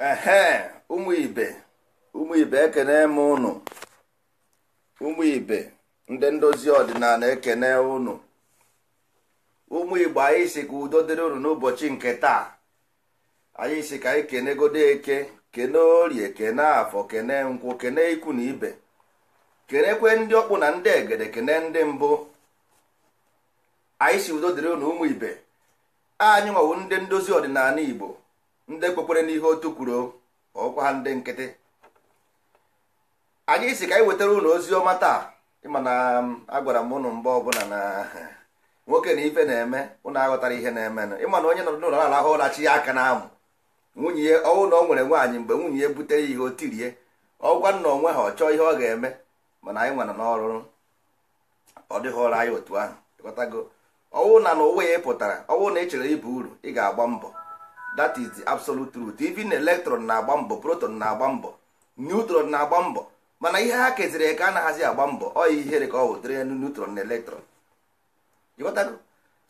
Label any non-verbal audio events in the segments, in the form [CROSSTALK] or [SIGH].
ehe ụmụ ibe ụmụ ibe ekene m ụnụ ụmụ ibe ndị ndozi ọdịnala ekene ụnụ ụmụ igbo anyị si ka udo dịrị ụnụ n'ụbọchị nke taa anyị si ka anyị kenegodo eke kene orie kene afọ kene nkwụ kene ikwu na ibe kenekwe ndị ọkpụ na ndị egede kene ndị mbụ anyị si udo dịrị ụnụ ụmụ ibe anyị nwawo ndị ndozi ọdịnala igbo ndị kwekwere n'ihe otu kwuru ọkwa ha ndị nkịtị anyị si ka anyị wetara ụlọ ozi ọma taa ịma na um, agwara m ụnụ mgbe ọbụla na [LAUGHS] nwoke na ife na-eme ụnụ aghọtara ihe na-emenụ ịma na onye nọ n'ụlọ na-arahụ ụra chi ya aka n'amụ nwunye ya ọnwụ na ọ nwere nwaanyị mgbe nwunye ya butere ya ihe o ọgwa nna onwe ha ọ chọọ ihe ọ ga-eme mana anyị nwere n'ọrụ ọ dịghị ọrụ anyị otu ahụ ịghọtago ọnwụ na n'ụwa ya ị pụtara ọnwụ na ị chere ibu uru ị ga-agba mbọ that is the absolute truth even electron na-agba mbọ proton na-agba mbọ neutron na-agba mbọ mana ihe ha keziri eke anaghịzi agba mbọ ọ ihere ka ọ wụdịrị elu neutron na electron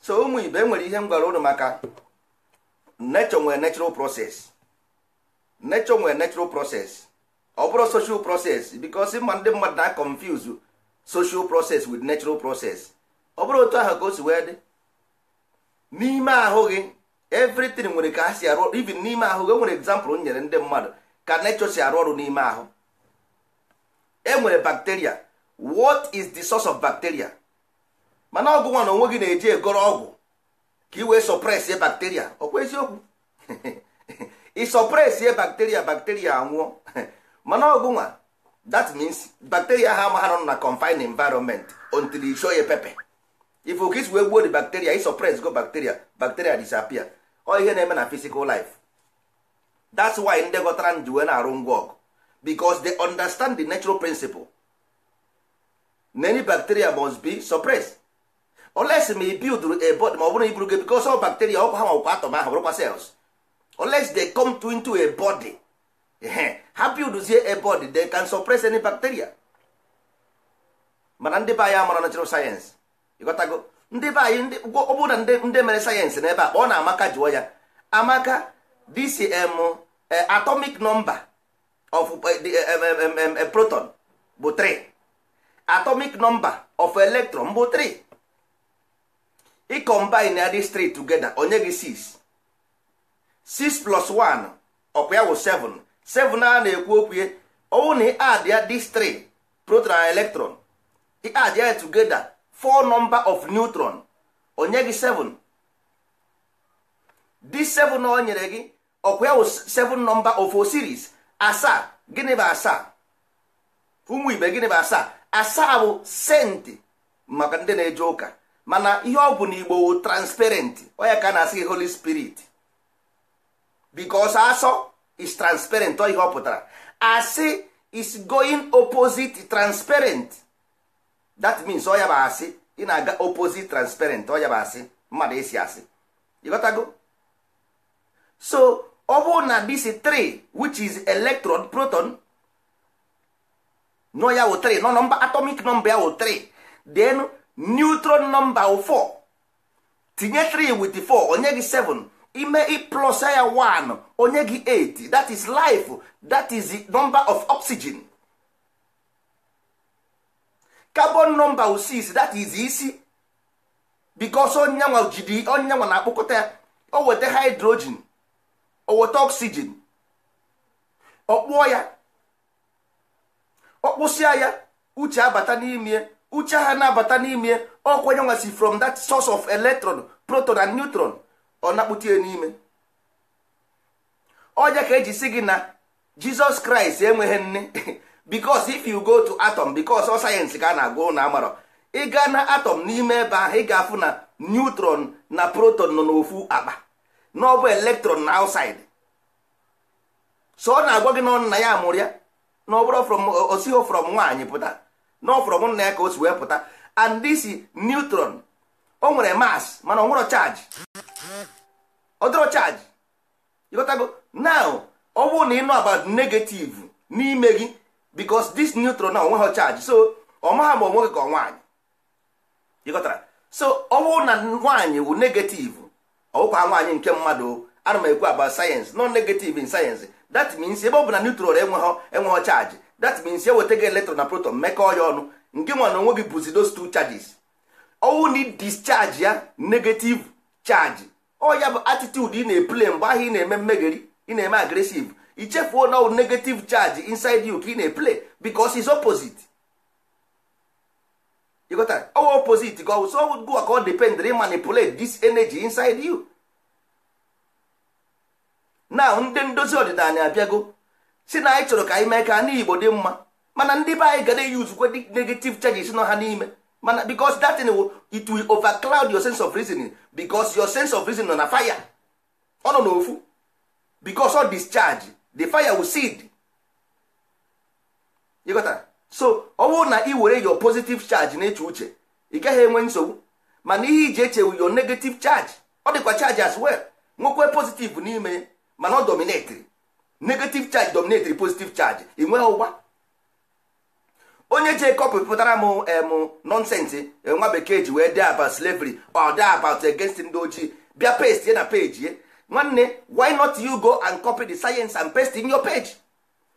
so ụmụ ibe nwere ihe m gwara ụnụ maka nature nwere natural process nature nwere natural process ọ bụrụ social process because ma ndị mmadụ na-confuse social process with natural process ọ bụrụ otu ahụ ka o si wee dị n'ime ahụ gị everything nwere ka ha si arụ ọrụ even n'ime ahụ e nwere example nyere ndị mmadụ ka nature si arụ ọrụ n'ime ahụ e nwere bacteria what is the source of bacteria mana ọgwụ nwa na onwe gị na-eji egoro ọgwụ ka i wee sọpresie bacteria ọkwa eziokwu ịsọpresie [LAUGHS] bacteria bacteria anwụọ [LAUGHS] mana ọgwụ nwa that means bacteria ha ama ha nọ na confined environment until i show ya pepper. if okis wee gbuo the bacteria i suppress go bacteria bacteria disappear ọ ihe na-eme na physical life that's why ndị ghọtara ji wee na-arụ ngwa ọgụ because they understand the natural principle any bacteria must be suppress. unless ma i build a body ma ọ bụrụ iburu gị because all bacteria ọkwa ha nwakwa atom ahụ bụrụkwa cells unless they come to into a body ha buildzie a body they can suppress any bacteria mana ndị be anyị amara natural science ịghọtago ndị be anyị ndị ọ na ndị mere sayensị n'ebe a kpọọ na amaka jụọ ya amaka this um, eh, atomic number of eh, eh, proton bụ 3 atomic number of electron bụ 3 ị combine ya these three together onye gị 6 6 plus 1 ọkwa ya bụ 7 7 a na-ekwu okwu ya ọwụ na ị add ya these three proton electron ị add ya together four number of neutron onye gị 7 this 7 o nyere gị ọkwa ya 7 number of series asaa gịnị bụ asaa ụmụ ibe gịnị bụ asaa asaa bụ senti maka ndị na-eje ụka mana ihe ọ bụ na igbo o transparent onye ka na-asị holy spirit because asọ is transparent ọ ihe ọ pụtara asị is going opposite transparent that means ọ ya bụ asị ị na-aga opposite transparent ọ ya bụ asị mmadụ esi asị ịghọtago so ọ bụrụ na this 3 which is electron proton no ya wụ 3 no nọmba atomic number ya wụ 3 then neutron number wụ 4 tinye 3 with 4 onye gị 7 ime plus ya 1 onye gị 8 that is life that is the number of oxygen carbon number wu 6 that is isi because onyanwa jidi na-akpọkọta ya o weta hydrogen o weta oxygen ọ kpụọ ya ọ kpụsịa ya uche abata n'ime uche ha na-abata n'ime ọkwa onyenwa si from that source of electron proton and neutron ọ na ya n'ime ọja ka eji si gị na jizọs kraịst enweghị nne [LAUGHS] bicos if you go to atom bicos ọ sayensị ka a na-agụ na amarọ ịga na atom n'ime ebe ahụ ị ga-afụ na neutron na proton nọ n'ofu akpa na ọ electron na outside so ọ na-agwa gị na ya amụrụ ya na ọ osigho from nwaanyị pụta na from nna ya ka o si wee pụta and this neutron o nwere mass mana ọ nwere charge ọ dịrọ ịgotago now ọ bụrụ na ị nọ about negative n'ime gị because this neutron na onwe ha charge so ọ maha ma onwe gị ka ọ nwaanyị ịghọtara so ọ bụrụ na nwaanyị wụ negative ọwụkwa nwaanyị nke mmadụ ana m ekwu aba sayensị nọ negative in sayensị that means ebe ọ bụ na neutral enweghọ enweghị charge that means eweta gị electron na proton mekọọ ya ọnụ nke nwa na onwe gị bụzi those two charges ọwụ na discharge ya negative charge ọ ya bụ attitude ị na-eple mgbe ahụ ị na-eme mmegheri ị na-eme agresive ichefuo na negative charge inside you ka ị na-eplay because is opposite you got all opposite go so go ka ọ depend re manipulate this energy inside you now ndị ndozi ọdịnala abịago si na anyị chọrọ ka anyị mee ka ndị Igbo dị mma mana ndị be anyị ga na-eyuzukwe negative charges nọ ha n'ime mana because that thing will, it will overcloud your sense of reasoning because your sense of reasoning nọ na fire ọ nọ n'ofu because ọ discharge the fire will seed you got so ọ bụrụ na ị were your positive charge na-eche uche ị gaghị enwe nsogbu mana ihe iji echewu your negative charge ọ dịkwa charge as well nwoke positive n'ime mana ọ dominatiri negative charge dominatiri positive charge ị nweghị ụgwa onye je kọpụpụtara m em nọnsensị e, nwa bekee ji wee dee about slavery or dee about against ndị ojii bịa paste na peji nwanne why not you go and copy the science and paste in your page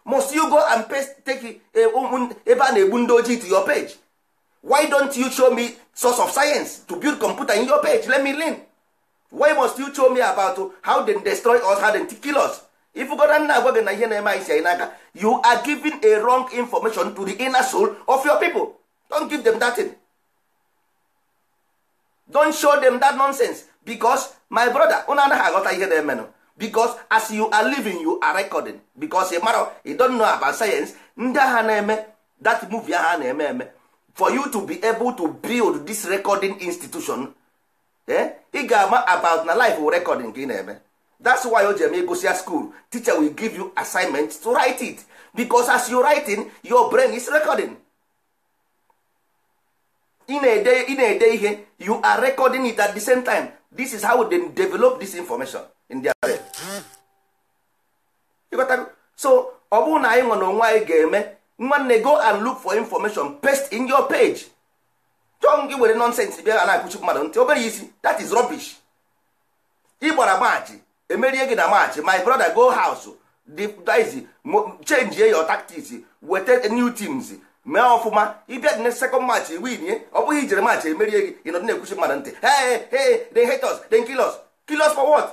must you go and paste take eh, um, um, ebe a na-egbu ndị ojii to your page why don't you show me source of science to build computer in your page let me learn why must you show me about how they destroy us how they kill us if gona nna agwa gị na ihe na-eme anyị si anyị n'aka you are giving a wrong information to the inner soul of your people don't give them that thing. don't show them that nonsense because my brother unu anaghị aghọta ihe na-emenụ because as you are living you are recording because ị mara you don know about science ndị agha na-eme that movie ahụ na-eme eme for you to be able to build this recording institution eh ị ga-ama about na life of recording ka ị na-eme that's why o ji eme school teacher will give you assignment to write it because as you writing your brain is recording ị na-ede ihe you are recording it at the same time this is how they develop this information in their brain so ọ bụrụ na anyị nọ n'onwe anyị ga-eme nwanne go and look for information paste in your page chọọ gị were nonsense bịa na-akụchi mmadụ ntị obere isi that is rubbish ị gbara maachị emerie gị na maachị my brother go house change your tactics weta new teams mee ọfụma ịbịa dị na sekọnd match winie ọ bụghị ijere match emerie gị ịnọdụ na-ekwuchi mmadụ ntị hey hey they hate us they kill us kill us for what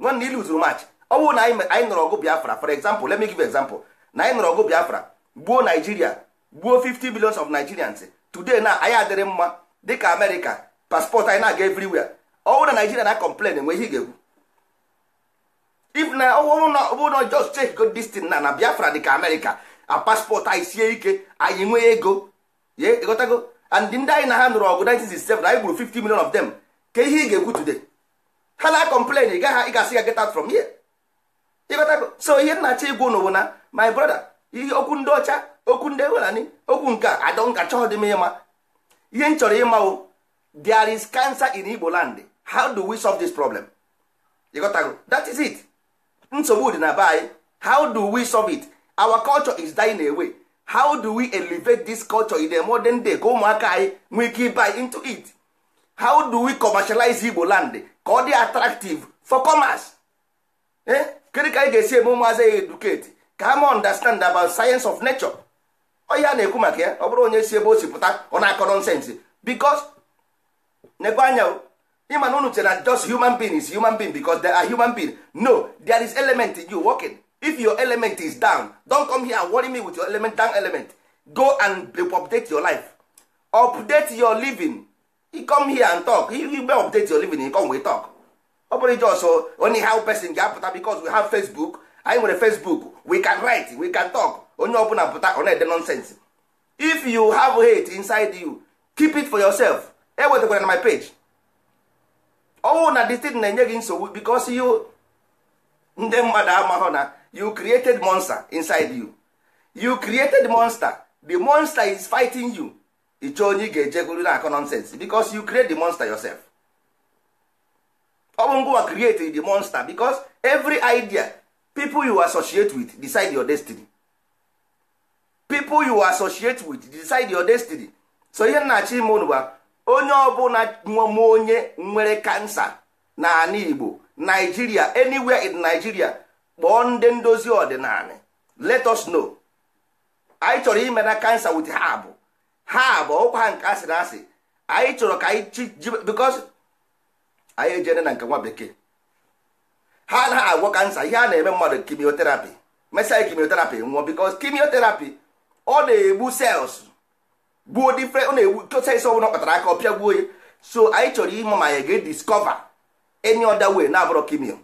nwanne ilu zuru match ọ bụrụ na anyị nọrọ ọgụ biafra for example let me give example na anyị nọrọ ọgụ biafra gbuo nigeria gbuo 50 billions of nigerians today na anyị adịrị mma dịka amerịka paspọtụ anyị na-aga everywhere ọ bụ na nigeria na complain enwe ihe ị ga egwu if na ọ bụ na just check go this na na biafra dịka amerịka a paspọtụ anyị sie ike anyị nwee ego ye ịghọtago and ndị anyị na ha nụrụ ọgụ 1967 anyị gburu 50 million of them ka ihe ị ga-ekwu today ha na complain ị gaghị gasị ga get out from here ịghọtago so ihe nna achọ igwu na my brother ihe okwu ndị ọcha okwu ndị ewelani okwu nke a adọ nka chọọ dị m ịma ihe m chọrọ o there is cancer in Igbo land how do we solve this problem ịghọtago that is it nsogbu dị na be anyị how do we solve it our culture is dying away how do we elevate this culture in the modern day ka ụmụaka anyị nwee ike buy into it how do we commercialize igbo land ka ọ dị attractive for commerce eh kedu ka anyị ga-esi eme ụmụazị ya educate ka ha understand about science of nature onye a na-ekwu maka ya ọ bụrụ onye si ebe o si pụta ọ na-akọ nonsense because nekwa anya ịma na unu chere na just human being is human being because they are human being no there is element in you working. if your element is down don come here and worry me with your element down element go and update your life update your living e come here and talk you, you update your living e come we talk ọ bụrụ jos only how person ga-apụta because we have facebook anyị nwere facebook we can write we can talk onye ọbụla pụta ọ na-ede nonsense if you have hate inside you keep it for yourself ewetakwara na my page ọnwụ oh, na thing na-enye gị nsogbu because you ndị mmadụ amaghọ na you created monster inside you you created monster the monster is fighting you ịchọ onye ị ga na-akọ nonsense because you create the monster yourself ọ bụ ngwa create the monster because every idea people you associate with decide your destiny people you associate with decide your destiny so ihe nnachi ime unu bụ onye ọbụla nwem onye nwere kansa na ala Igbo Nigeria anywhere in Nigeria kpọọ ndị ndozi ọdịnala let us know anyị chọrọ ime na kansa wit ha bụ ha bụ ọkwa ha nke asịrị asị anyị chọrọ ka anyị because anyị ejene na nke nwa bekee ha na agwọ kansa ihe a na-eme mmadụ kimioterapi mesa kimioterapi nwụọ because kimioterapi ọ na-egbu sels gbuo different ọ na-egbu sels ọ bụla kpatara aka ọ pịa gbuo ya so anyị chọrọ ime ma ya ga-ediskọva any ọda wee na-abụrọ kimio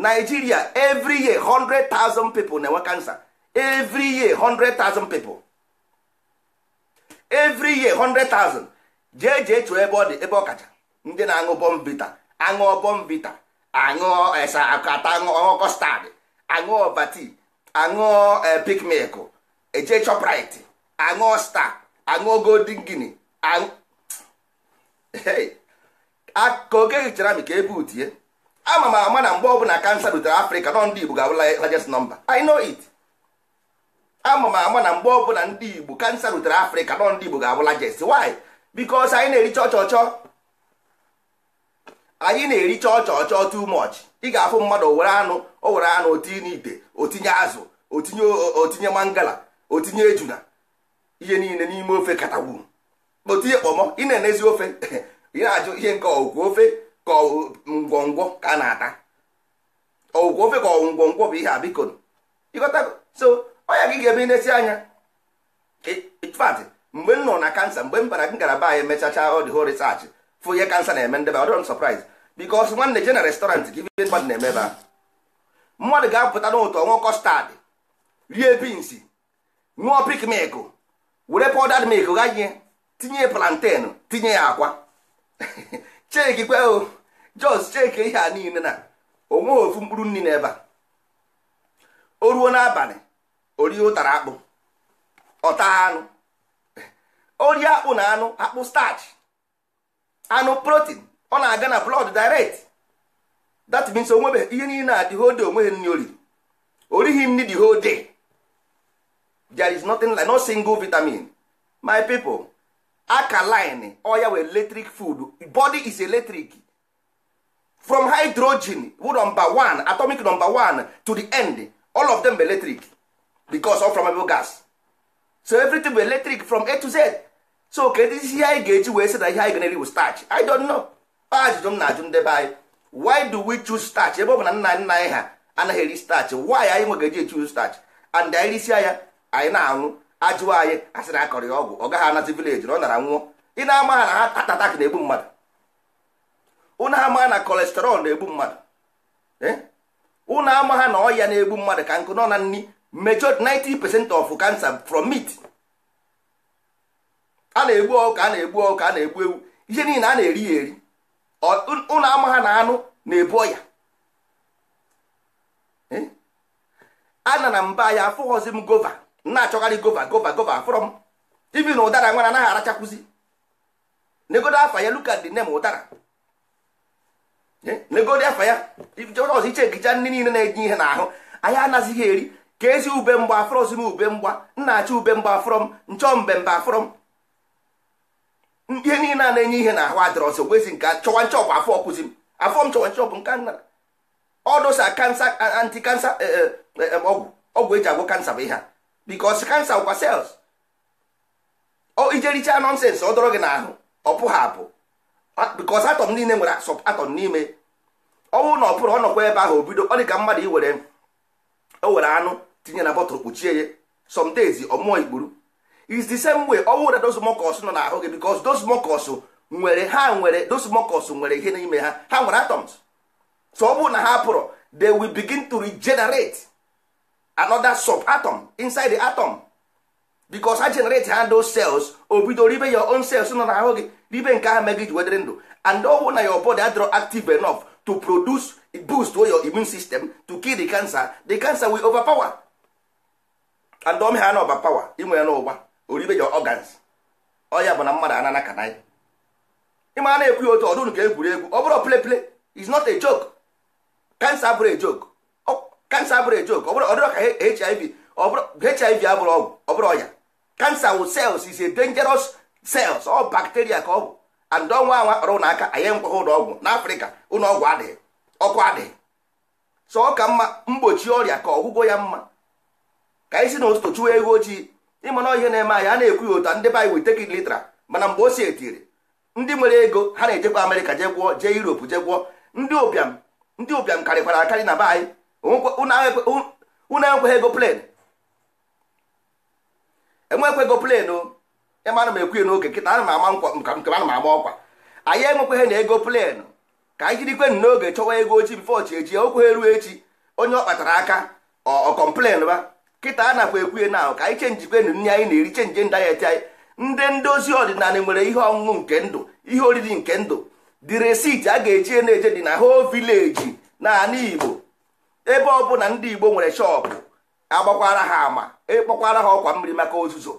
Nigeria every year hundred thousand people na-enwe cancer every year hundred thousand people every year hundred thousand jee jee chụọ ebe ọ dị ebe ọ kacha ndị na-aṅụ bombita aṅụọ bombita aṅụọ esa eh, akata aṅụọ kọstad aṅụọ vati aṅụọ eh, pikmik eje choprit aṅụọ sta aṅụọ golden gini aṅụ ka oge hichara m ka ebe utie ama m ama na mgbe ọ bụla kansa rutere afrịka nọ ndị igbo ga-abụla largest nọmba i know it ama m ama na mgbe ọ bụla ndị igbo kansa rutere afrịka nọ ndị igbo ga-abụ largest why because anyị na-ericha ọchọchọ anyị na-ericha ọchọchọ too much ị ga-afụ mmadụ were anụ o were anụ otinye n'ite otinye azụ otinye otinye mangala otinye ejuna ihe niile n'ime ofe katagwu otinye kpọmọ ị na-enezi ofe [LAUGHS] ị na-ajụ ihe nke ọgwụgwụ ofe ka ngwongwo ka a na-ata ọgwụgwọ ofe ka ngwongwo bụ ihe a biko ịghọtago so ọnya gị ga-eme na-esi anya fatị mgbe m nọ na kansa mgbe m bara m gara be anyị mechacha ọ dị research fụ ihe kansa na-eme ndebe ọ dịrọ surprise because nwanne je na restaurant gị ibe mmadụ na-eme ebe mmadụ ga-apụta n'ụtọ ọnwụ kọstad rie bins ṅụọ pik mik were pọdad mik ghaghị tinye plantain tinye ya akwa [LAUGHS] cheki kweo jos cheke ihe a niile na onwe ofu mkpụrụ nri n'ebe a o ruo n'abalị orie ụtara akpụ ọta anụ orie akpụ na anụ akpụ starch anụ protein ọ na-aga na blood direct that means onwebe ihe niile a dị hode onweghị nri oriri orighi nri dị hode there is nothing like no single vitamin my people ọ oya wee electric food body is electric from hydrogen number one atomic number one to the end all of them bụ electric because all flammable gas so everything bụ electric from a to z so kedu ihe anyị ga-eji wee sị na ihe anyị ga-eri bụ starch i don't know ajụjụ m na-ajụ ndebe anyị why do we choose starch ebe ọ bụ na nna nna anyị ha anaghị eri starch why anyị nwe ga-eji echu starch and anyị risia ya anyị na-anwụ ajụwa anyị asịrị akọrọ ya ọgwụ ọ gaghị anazi vileji na ọ nara nwụọ ị na-ama ha na ha na-egbu mmadụ ụnụ ama na kolesterọl na-egbu mmadụ ụnụ eh? ama ha na ọya na-egbu mmadụ ka nkụ nọ na nri mejọ 90% of cancer from meat a na-egbu ọka a na-egbu ọka a na-egbu ewu ihe niile a na-eri ya eri ụnụ ama na anụ na-ebu ọya eh? a na na mba ya afụghọzi m gova na-achọgharị gova gova gova from ibi na ụdara nwa na anaghị arachakwụzi negodo afa ya look at ụdara negodi afa ya ọzọ iche egicha ndị niile na enye ihe n'ahụ anyị anazighị eri ka ezi ube mgba afrọzi ube mgba nna achị ube mgba afrọm nchọ mbembe afrọm ihe niile a na-enye ihe n'ahụ adịrọsị gwezi nke chọwa nchọ bụ afọ ọkụzi afọ m chọwa nchọ bụ nke nna ọdụsa kansa anti kansa ọgwụ ọgwụ eji agwọ kansa bụ ihe a bikos kansa bụkwa sels ijericha nọnsens ọ dọrọ gị n'ahụ ọ pụghị apụ Ah, because atọm niile nwere atọm n'ime ọnwụ na ọpụrụ bụrụ ọ nọkwa ebe ahụ obido ọ dịka ka mmadụ iwere were anụ tinye na bọtụlụ kpuchie ya some days ọmụọ ikpuru is the same way ọnwụ na those nọ n'ahụ gị because those nwere ha nwere those nwere ihe n'ime ha ha nwere atoms so ọ bụrụ na ha pụrụ they will begin to regenerate another sub atom inside the atom because ha generate ha those cells o bido ribe your own cells nọ n'ahụ gị ribe nke ahụ mee ji wedere ndụ and ọwụ na your body adịrọ active enough to produce boost to your immune system to kill the cancer the cancer will overpower and ọmị ha na overpower inwe ya n'ụgba oribe your organs ọya bụ na mmadụ ana ka anyị ịma na-ekwu ya otu ọdụnụ ka egwuregwu ọ bụrụ ple play is not a joke oh, cancer abụrụ a joke cancer bụrụ a joke ọ bụrụ ka hiv abụrụ ọgwụ ọ bụrụ ọya cancer wụ cells is a dangerous cells ọ bacteria ka ọ bụ and ọnwa anwa kpara ụlọ aka anyị nkwagha ụlọ ọgwụ n'afrịka ụlọ ọgwụ adịghị ọkụ adịghị so ọ ka mma mgbochi ọrịa ka ọgwụgwọ ya mma ka anyị si na ụtụtụ chụwa ego ojii ịmana ihe na-eme anyị a na-ekwu ya ụta ndị be anyị litra mana mgbe o si etiri ndị nwere ego ha na-ejekwa amerịka jee gwụọ jee europe jee gwụọ ndị ụbịam ndị ụbịam karịkwara akarị na be anyị unu enwekwaghị ego plen enwekwego plenu ana m ekwu n'oge kịta ana m ama nkwa nke ana m ama ọkwa anyị enwekweghị na ego plenu ka anyị jirikwenụ n'oge chọwa ego ochi bifo chi echi okwe ruo echi onye ọ kpatara aka ọ ba kịta a nakwa ekwuhe na ahụ ka anyị chenjikwenụ nri anyị na-eri chenji dayet anyị ndị ndozi ọdịnala nwere ihe ọṅụṅụ nke ndụ ihe oriri nke ndụ dị resiti a ga-eji na-eje dị na ho vileji na anị igbo ebe ọ ọbụla ndị igbo nwere shọpụ agbakwara ha ama ịkpọkwara e ha ọkwa mmiri maka ozuzo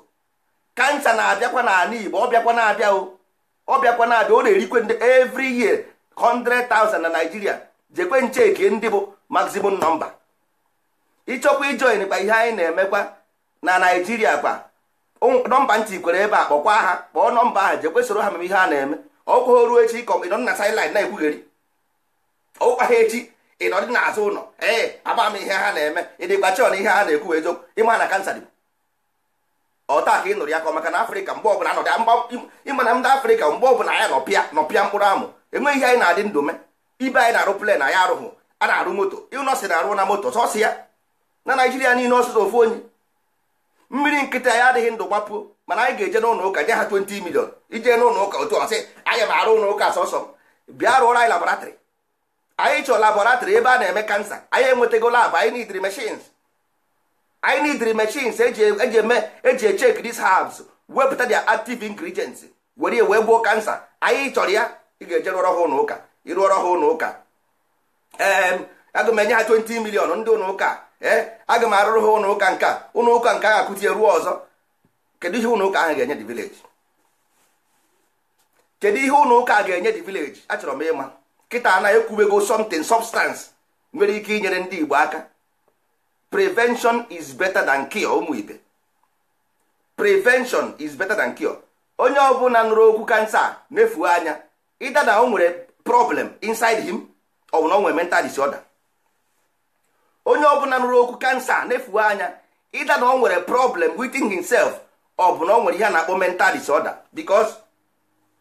kansa na-abịakwa n'ala Igbo ọ bịakwa na-abịa o ọ bịakwa na-abịa ọ na-erikwe ndị every year 100,000 na Naịjirịa jekwe nche eke ndị bụ maximum nọmba ịchọkwa ijoin kwa ihe anyị na-emekwa na Naịjirịa kwa nọmba ntị kwere ebe a kpọkwa ha kpọọ nọmba ahụ jekwe soro ha mere ihe a na-eme ọkwa ruo echi kọmịnọ nna silin na-ekwugheri ọkwa ha echi ị nọ dị n'azụ ụlọ ee aba m ihe ha na-eme ịdịgba chọn ihe ha na-ekwu eziokwu ịma na kansa dị ọta ka ị nụrụ ya ka maka na afrịka mgbe ọbụla anọdị ịma na ndị afrịka mgbe ọbụla ya nọpịa nọpịa mkpụrụ amụ enweghị ihe anyị na-adị ndụ me ibe anyị na-arụ plen anyị arụghụ a na-arụ moto ịnọsị na-arụ na moto sọsị ya na naijiria niile ọsụsọ ofu onye mmiri nkịtị anyị adịghị ndụ gbapụ mana anyị ga-eje n'ụlọ ụka nye ha 20 milion ije n'ụlọ ụka otu ọsị anyị m arụ ụlọ ụka sọsọ bịa rụọrọ anyị labọratrị anyị chọọ laboratrị ebe a na-eme kansa anyị enwetago labụ anyị nidiri machines anyị nidiri machines eji e, e eme eji echek these herbs wepụta their active ingredients were wee gbuo kansa anyị chọrọ ya ị ga-eje rụọrọ ha ụlọ ụka ịrụọrọ ha ụlọ ụka ee aga m enye ha 20 million ndị ụlọ ụka ee eh? aga m arụrụ ha ụlọ ụka nke a ụlọ ụka nke ahụ akụtie ruo ọzọ kedu ihe ụlọ ụka ahụ ga-enye dị vileji kedu ihe ụlọ ụka ga-enye dị vileji achọrọ m ịma kịta anaghị ekwubego something substance nwere ike inyere ndị Igbo aka prevention is better than cure ụmụ ibe prevention is better than cure onye ọbụla nụrụ okwu kansa mefuo anya ịda na o nwere problem inside him ọ bụ na o nwere mental disorder onye ọbụla nụrụ okwu kansa nefuo anya ịda na o nwere problem within himself ọ bụ na o nwere ihe a na-akpọ mental disorder because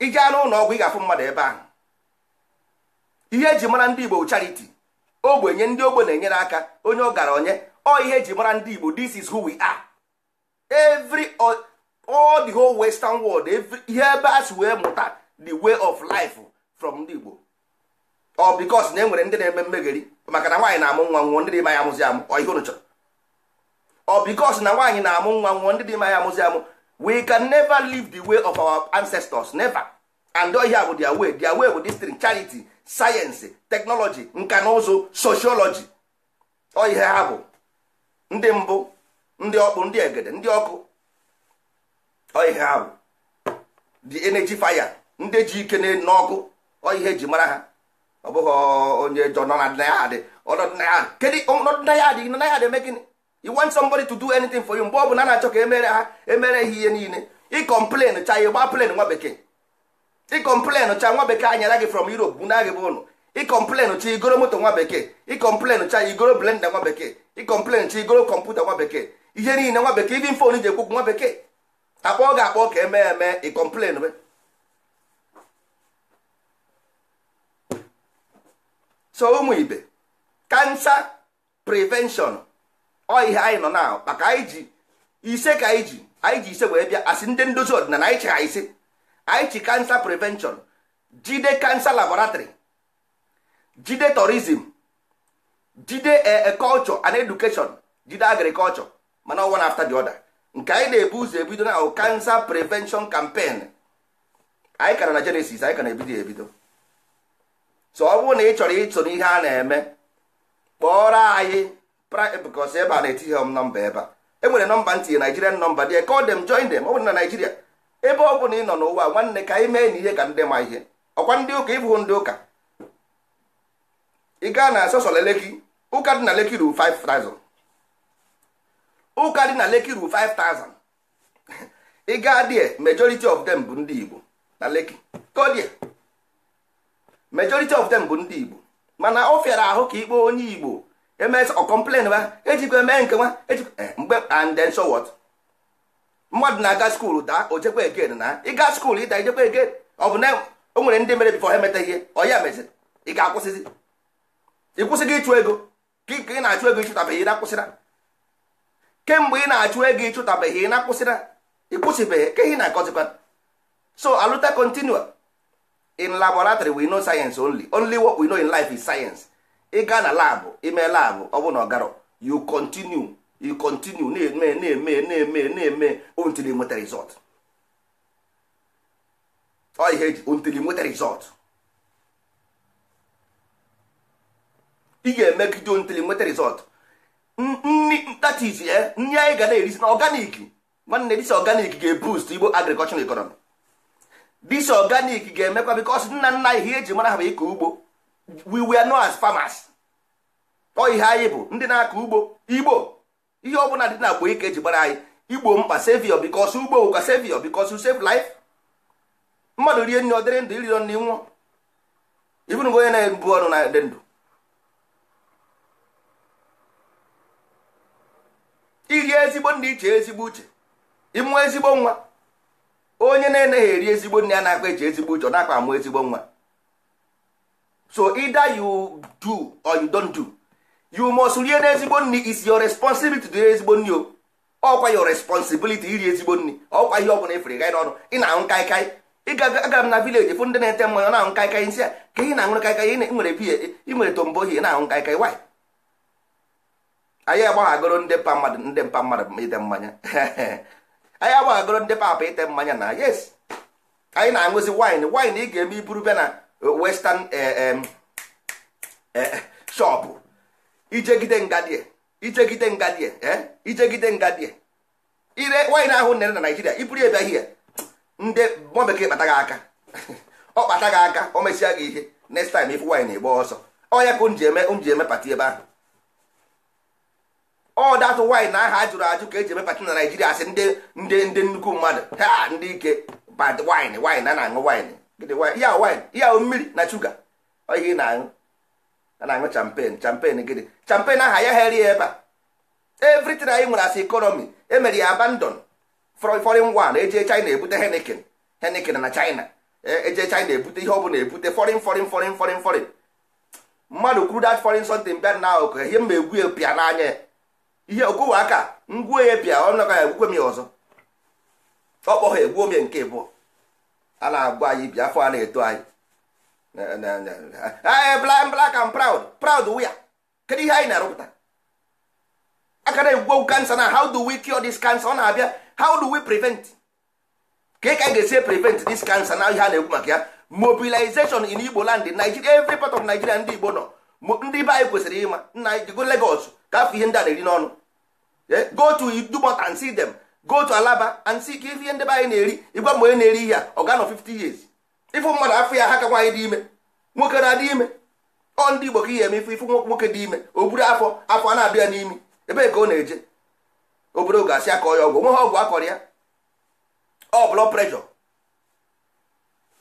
ije anụ ụlọ ọgwụ ị ga-afụ mmadụ ebe ahụ ihe eji mara ndị igbo charity ogbenye ndị ogbe na-enyere aka onye ọ gara ọgaranya ọ ihe eji mara ndị igbo this is who we are every all the whole western world ihe ebe a si wee mụta the way of life from ndị igbo ọ because na enwere ndị na-eme mmegheri maka na nwaanyị na-amụ nwa nwụọ ndị dị ma ya amụzi amụ ọ ihe unu chọrọ ọ because na nwaanyị na-amụ nwa nwụọ ndị dị ma ya amụzi amụ we can never leave the way of our ancestors never and ọ ihe bụ their way their way bụ this thing sayensị teknọlọji nka na ụzụ soshiọlọji ọ ihe ha bụ ndị mbụ ndị ọkpụ ndị egede ndị ọkụ ọ ihe ha bụ di energy fire ndị ji ike n'ọkụ ọ ihe ji mara ha ọ bụghị onye jọ nọ na ya adị ọnọdụ na ya adị eme gịnị you want somebody to do anything for you mgbe ọ bụ na na-achọ ka emere ha emere ha ihe niile ị complain cha ya gba plen nwa bekee ịkọmplen cha nwa bekee anyara gị from Europe na gị bụ ụnụ ịkọmplen cha igoro moto nwa bekee ịkọmplen cha igoro blenda nwa bekee ịkọmplen cha igoro kọmputa nwa bekee ihe niile nwa bekee ibin fon ji ekwukwu nwa bekee akpọọ ga akpọ ka eme eme ịkọmplen so ụmụ ibe kansa prevention ọ ihe anyị nọ na maka anyị ji ise ka anyị ji anyị ji ise wee bịa asị ndị ndozi ọdịnala anyị chịgha ise anyị chi kansa prevention jide kansa laboratory jide tourism jide eh, eh, culture and education jide agriculture mana one after the other nke anyị na-ebu ụzọ ebido na cancer prevention campaign anyị kara na genesis anyị na ebido ebido so ọ bụrụ na ị chọrọ ịtụ n'ihe a na-eme kpọrọ anyị bikos ebe a na-etinye m nọmba ebe a enwere nọmba ntinye nigerian nọmba dị ọ dem join dem ọ bụrụ na naijiria ebe ọ bụla ị nọ n'ụwa nwanne ka anyị mee na ihe ka ndị ma ihe ọkwa ndị ụka ịbụghị ndị ụka ị gaa na sọsọla leki ụka dị na leki ru 5000 ụka dị na leki ru 5000 ị gaa die majority of them bụ ndị igbo na leki kodie majority of them bụ ndị igbo mana ọ fịara ahụ ka ikpe onye igbo emes ọ kọmplen ba ejikwa eme nke nwa ejikwa eh, mgbe and then so what mmadụ na-aga skuulu daa o jekwa egen na ịga skuulu ịda ijekwa egen ọ bụ na o nwere ndị mere bifo ha emeta ihe ọ ya meziri ị ga-akwụsịzi ị kwụsịghị ịchụ ego ka ị na-achụ ego ịchụtabeghị ị na-akwụsịra kemgbe ị na-achụ ego ịchụtabeghị ị na-akwụsịra ịkwụsịbeghị ka ihe na-akọzikwa so aluta continua in laboratory we know science only only what we know in life is science ị gaa na labụ ime labụ ọ bụ na ọ ọgarọ you continue you continue na-eme na-eme na-eme na-eme until you nweta result ọ ihe ji until you nweta result ị ga-emegide until you nweta result nri that is eh? ya nri anyị ga na-erisi na organic nwanne dis organic ga-eboost igbo agricultural economy dis organic ga-emekwa because nna nna ihe eji mara ha bụ ịkọ ugbo we were known as farmers ọ ihe anyị bụ ndị na-akọ ugbo igbo ihe bụla dị na agba ike ji gbara anyị igbo mkpa sevio bikos ugbo ụka sevio bikos save mmadụ rie nri ọ dịrị ndụ iriro nri nwụọ ibụrụ onye na-ebu ọrụ na dị ndụ iri ezigbo nri iche ezigbo uche ịmụ ezigbo nwa onye na-eneghị eri ezigbo nri a na-akpa eche ezigbo uche ọ na-akpa amụ ezigbo nwa so either you do or you don't do you must rie n'ezigbo nri is your responsibility to rie ezigbo nri o ọkwa your responsibility iri ezigbo nri ọkwa ihe ọbụla efere gaị n'ọnụ ị na-aṅụ kaikai ịgagara m na vileji fụ ndị na-ete mmanya na-aṅụ kaikai nsị a ka ị na-aṅụrụ kaikai ị nwere biya ị nwere tombo ohi na-aṅụ kaikai waị anyị agbaghagoro ndị mpa mmadụ ndị mpa mmadụ ite mmanya [LAUGHS] anyị agbaghagoro ndị papa ite mmanya na yes anyị na-aṅụzi wine wine ị ga-eme iburu bịa na eh, western eh, eh, shop ijegide ngadie ijegide ngadie eh? ijegide ngadie ire nwaanyị na-ahụ nere na naijiria iburu ebe ahịa ndị nwa bekee kpata gị aka [LAUGHS] ọ kpata gị aka ọ mesịa gị ihe next time ịfụ nwaanyị na-egbe ọsọ ọ ya ka m ji eme m ji eme pati ebe ahụ ọ datụ nwaanyị na aha jụrụ ajụ ka eji eme pati na naijiria asị ndị ndị ndị nnukwu mmadụ ha ndị ike bad wine wine a na-aṅụ wine ya wine ya mmiri na shuga ọ ihe ị na-aṅụ a na champan champen gịnị champen aha ya heri ebe a evritin anyị nwere as economy emere ya abandon foreign one eje china ebute eh, eh, henikin henikin na china eje china ebute ihe ọ bụla ebute foreign foreign foreign foreign foreign mmadụ kwuru dat foreign something bịa na ụkọ ihe mma egwu pịa n'anya ihe okowe aka ngwuo ya pịa ọ nọga ya m ya ọzọ ọ kpọghọ egwuo m ya nke bụ a na-agwa anyị bịa afọ a na-eto anyị Ah, eh, black and proud proud are kedu ihe anyị na-arụpụta aka na-egwugo cancer na how do we cure this cancer ọ na-abịa how do we prevent ka ka ga-esi prevent this cancer na ihe a na egwu maka ya mobilization in igbo land nigeria every part of nigeria ndị igbo nọ ndị be anyị kwesịrị ịma nna anyị go lagos ka afọ ihe ndị a na-eri n'ọnụ go to idumot and see them go to alaba and see ka ihe ndị be anyị na-eri ịgwa mgbe onye na-eri ihe a ọ ga nọ 50 years ifu mmadụ afọ ya ha ka nwaanyị dị ime nwoke na-adị ime ọ ndị Igbo ka ihe eme ifu ifu nwoke dị ime o buru afọ afọ a na-abịa n'imi ebe ka ọ na-eje obodo ga-asị akọ ya ọgwụ nwe ha ọgwụ akọrọ ya ọ blọ preshọ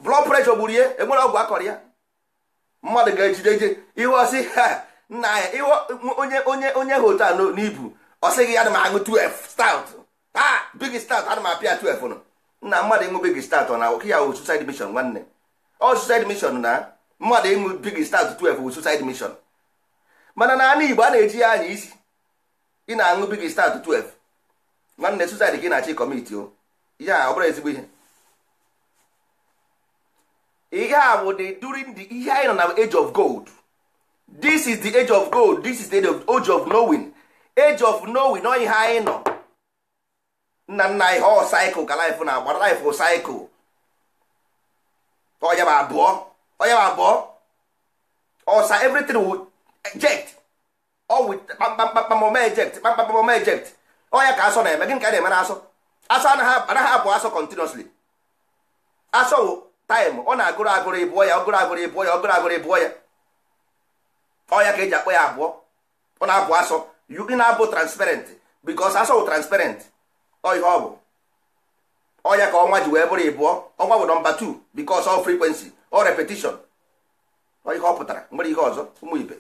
blọ preshọ gburu ya enwere ọgwụ akọrọ ya mmadụ ga-ejide je ihe ọsị ha nna ya ihe onye onye onye hotel n'ibu ọ sịghị ya na m aṅụ 12 stout ha ah, big stout ana m apịa 12 nọ na mmadụ ịṅụ big start na oke ya wụ suicide mission nwanne ọ suicide mission na mmadụ ịṅụ big start 12 wụ suicide mission mana na anụ Igbo a na-eji ya anya isi ị na-aṅụ big start 12 nwanne suicide ka ị na-achị kọmiti o ya ọ bụrụ ezigbo ihe ihe a bụ the during the ihe anyị nọ na age of gold this is the age of gold this is the age of knowing age of knowing ọ ihe anyị nọ nna nna anyị ọ saịkụl ka laịfụ na-agba laịfụ saịkụ ọya bụ abụọ ọya bụ abụọ ọsa everything will ejekt ọ wit kpamkpamkpam ọma eject kpamkpamkpam ọma eject ọya ka asọ na-eme gị nke na-eme na asọ asọ anaghị abụ asọ continuously asọ wụ taịm ọ na-agụrụ agụrụ ịbụọ ya ọgụrụ agụrụ ịbụọ ya ọgụrụ agụrụ ịbụọ ya ọya ka eji akpọ ya abụọ ọ na-abụ asọ ị na-abụ transparent because asọ wụ transparent ọ ihe ọ bụ ọnya ka ọnwa ji wee bụrụ ịbụọ ọnwa bụ nọmba 2 bikos ọ frekwensi ọ repetishon ọ ihe ọ pụtara nwere ihe ọzọ ụmụ ibe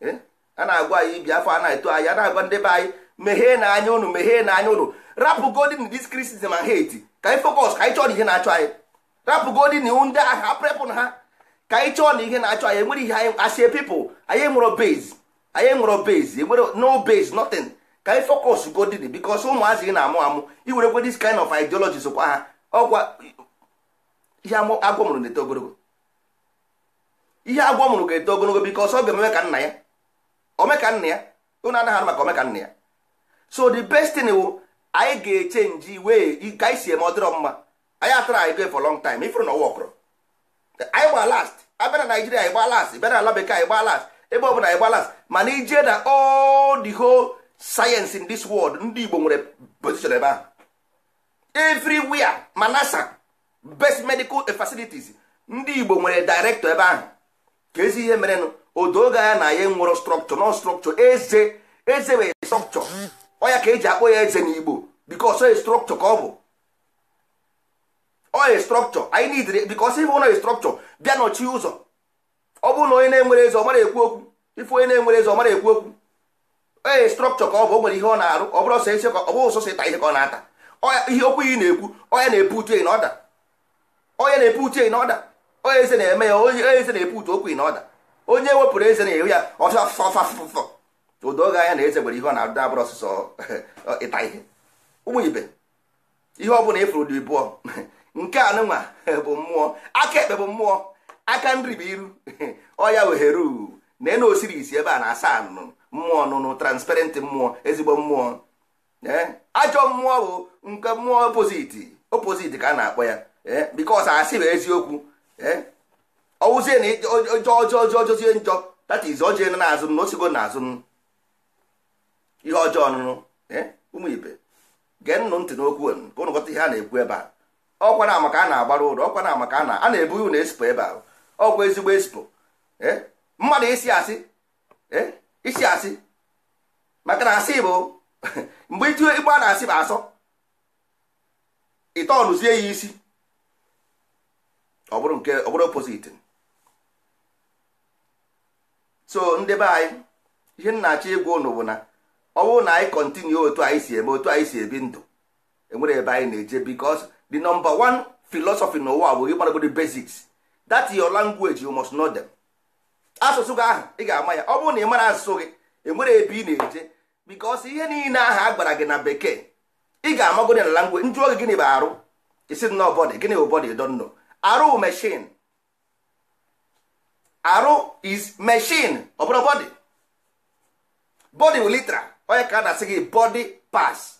eh? a na-agwa anyị ibi afọ a na-eto anyị a na-agwa ndị be anyị meghee na anya ụnụ meghee na anya ụnụ rapụ godin dis kristism and hate ka anyị fokọs ka anyị chọọ na ihe na-achọ anyị rapụ godin ndị aha aprepụ ha ka anyị chọọ na ihe na-achọ anyị enwere ihe anyị asị pipụl anyị enwero base anyị enwero base enwere no base nothing ka anyị fọkọs godid bikos ụmụazị gị na-amụ amụ iwerekwe dis kind of ideology sokwa ha ọkwa ihe agwọ na-eto ogologo ihe agwọ mụrụ ga-eto ogologo bikos ọ ga-eme ka nna ya omeka nna ya ụnụ anaghị maka omeka nna ya so the best thing anyị ga-eche nji wee ka anyị si eme ọ dịrọ mma anyị atara anyị go for long time ifuru na ọwa ọkụrụ anyị gba last abịa na naijiria anyị gba last bịa na ala bekee anyị gba last ebe ọ bụla anyị gba last mana ijee na all the whole sayensị in this world ndị Igbo nwere position ebe ahụ everywhere ma NASA best medical facilities ndị Igbo nwere director ebe ahụ ka ezi ihe merenụ odoga ya na ya nwere structure nọ structure eze eze wee structure ọ ya ka eji akpọ ya eze n'Igbo because oye structure ka ọ bụ ọ structure anyị nidere because ife ụlọ structure bịa nọchi ụzọ ọ bụrụ na onye na-enwere eze ọ mara ekwu okwu ife onye na-enwere eze ọ mara ekwu okwu ee strọkchọ ka ọ bụ o nwere ihe ọ na-arụ ọ bụrụ ọsọ ka ọ bụrụ ọsọsọ ịta ihe ka ọ na-ata ihe okwu yi na-ekwu onye na-epu utu na ọda onye na-epu utu na ọda onye eze na-eme ya onye eze na-epu utu okwu na ọda onye wepụrụ eze na-ewe ya ọsọ afụfafụfụfụ odoga anya na eze nwere ihe ọ na-adụ abụrụ ọsọsọ [LAUGHS] ịta ihe ụmụ ibe ihe ọ bụla ịfụrụ dị bụọ [LAUGHS] nke a nụnwa [LAUGHS] bụ mmụọ aka ekpe bụ mmụọ aka nri bụ iru ọya wehere na enu osiri isi ebe a na-asa anụnụ mmụọ nụnụ transparent mmụọ ezigbo mmụọ eh? ajọ mmụọ bụ nke mmụọ opoziti opoziti ka a na-akpọ ya ee bikos asị bụ eziokwu ee eh? ọwụzie na ọjọọ ọjọọ njọ tata izu ọjọọ elu na-azụ na osigo na azụ ihe ọjọọ nụnụ eh? ụmụ ibe gee nnụ ntị n'okwu ka ụnụ ihe a na-ekwu ebe a ọkwa na maka a na-agbara ụlọ ọkwa na maka a na-ebu ụlọ esipo ebe ahụ ọkwa ezigbo esipo mmadụ isi asị isi asị maka na asị bụ [LAUGHS] mgbe itinye igbo a na-asị bụ asọ ịtọọrụzie ya isi ọ bụrụ nke ọ bụrụ opposite so ndị be anyị ihe m na-achọ ịgwa ụnụ bụ na ọ bụrụ na anyị kọntinue otu anyị si eme otu anyị si ebi ndụ enwere ebe anyị na-eje because the number one philosophy n'ụwa bụ ịgbaragodo basics that your language you must know them. asụsụ gị ahụ ị ga-ama ya ọ bụrụ na ị mara asụsụ gị enwere ebe ị na-eje because ihe niile ahụ a gwara gị na bekee ị ga-amagodi na langwe njụ oge gịnị bụ arụ isi nọ bọdị gịnị bụ bọdị donno arụ meshin arụ is meshin ọbụrụ bụrụ bọdị bọdị bụ litra onye ka a na-asị gị bọdị pas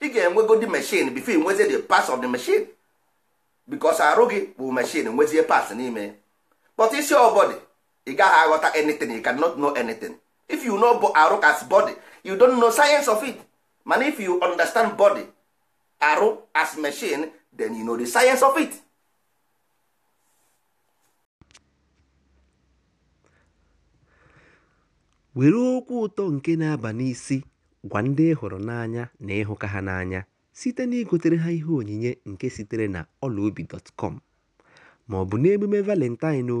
ị ga-enwegodi meshin bifo nwezie the pas of the meshin because arụ gị bụ meshin nwezie pas n'ime kpọta isi ọbọdị ị gaghị aghọta anything you cannot know anything if you know arụ as body you don know science of it mana if you understand body arụ as machine then you know the science of it. were okwu ụtọ nke na-aba n'isi gwa ndị hụrụ n'anya na ịhụka ha n'anya site na igotere ha ihe onyinye nke sitere na ọlaobi dọtkọm ma ọ bụ n'emume valentine o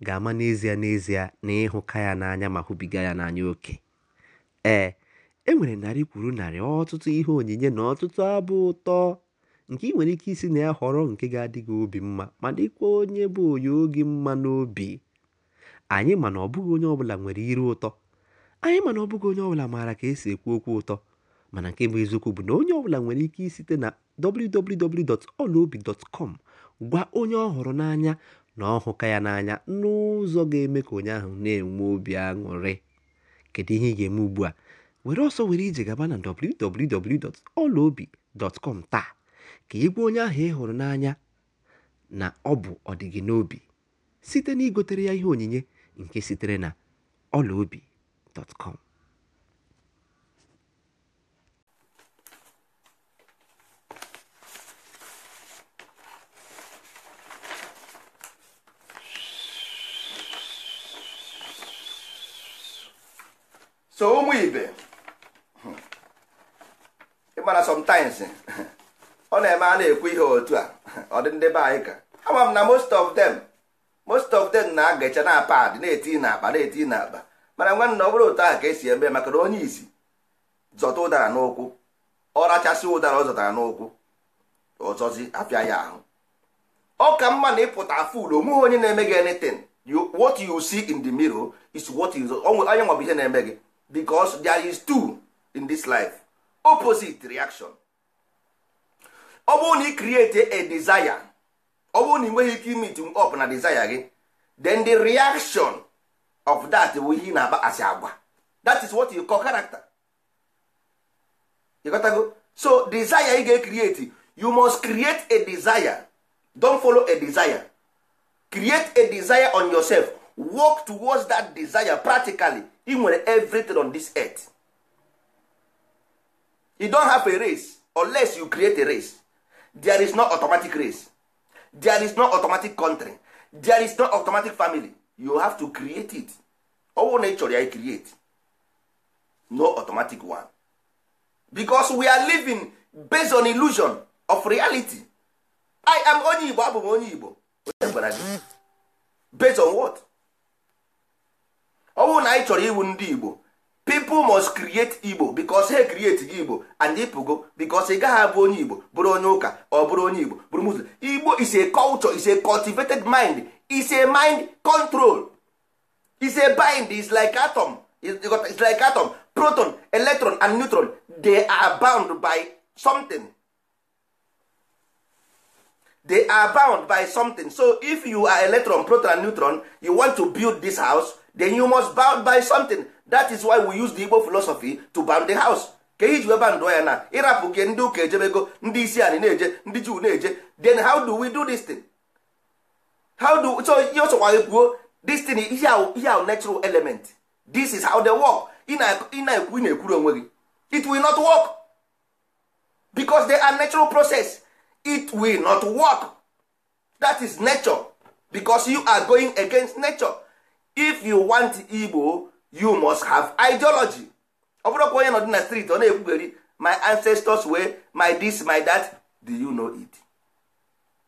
ga-ama n'ezie n'ezie na ịhụka ya n'anya ma hụbiga ya n'anya oke ee e nwere narị kwuru narị ọtụtụ ihe onyinye na ọtụtụ abụ ụtọ nke ị nwere ike isi na ya họrọ nke ga-adị gị obi mma ma dịkwa onye bụ onye oge mma n'obi anyị ma na ọbụghị onye ọbụla nwere iru ụtọ anyị ma na ọbụghị onye ọbụla maara ka esi ekwu okwu ụtọ mana nke bụ eziokwu bụ na onye ọbụla nwere ike isite na wwwolobicom gwa onye ọ họrọ n'anya na ọ ya n'anya n'ụzọ ga-eme ka onye ahụ na-enwe obi aṅụrị kedu ihe ị ga-eme ugbu a were ọsọ were ije gaba na www.olaobi.com taa ka ị gwa onye ahụ ị hụrụ n'anya na ọ bụ ọdịgị n'obi site na igotere ya ihe onyinye nke sitere na ọlaobi.com so ụmụ ibe ịmana sometimes ọ [LAUGHS] na-eme a na-ekwu ihe otu a ọ dị ndị be anyị ka ama m na most of them most of them na-agacha na pad na-eti na akpa na-eti na akpa mana nwanne ọ bụrụ otu ahụ ka esi eme maka na onye isi zọta ụdara n'ụkwụ ọ rachasị ụdara ọ zọtara n'ụkwụ ọzọzi apịa ya ahụ ọ ka mma na ịpụta ful onweghị onye na-eme gị anything what you see in the mirror is what you onye nwa ihe na-eme gị because there is two in this life opposite reaction ọ bụrụ na ị create a desire ọ bụrụ na ị nweghị ike imit up na desire gị then the reaction of that bụ ihe ị na as asị agwa that is what you call character you go so desire ị ga-ecreate you must create a desire don follow a desire create a desire on yourself work towards that desire practically ị nwere everything on this earth you don have a race unless you create a race there is no automatic race there is no automatic country there is no automatic family you have to create it owo nature ị ya create no automatic one because we are living based on illusion of reality i am onye igbo abụ m onye igbo based on what ọ bụrụ na anyị chọrọ iwu ndị igbo people must create igbo because he create gị igbo and go because ị gaghị abụ onye igbo bụrụ onye ụka ọ bụrụ onye igbo bụrụ muslim igbo is a culture is a cultivated mind is a mind control is a bind is like atom is like atom proton electron and neutron they are bound by something they are bound by something so if you are electron proton and neutron you want to build this house then you must buy by something that is why we use the igbo philosophy to bound the house ka ihe ji wee bandụọ ya na ịrapụ ke ndị ụka ejebego ndị isi anyị na-eje ndị juu na-eje then how do we do this thing how do so ihe ọsọkwa kwuo this thing ihe ahụ natural element this is how they work Ịna na-ekwu ị na-ekwuru onwe gị it will not work because they are natural process it will not work that is nature because you are going against nature if you want Igbo you must have ideology ọ bụrụ ka onye nọ dị na street ọ na-ekwugheri my ancestors way my this my that do you know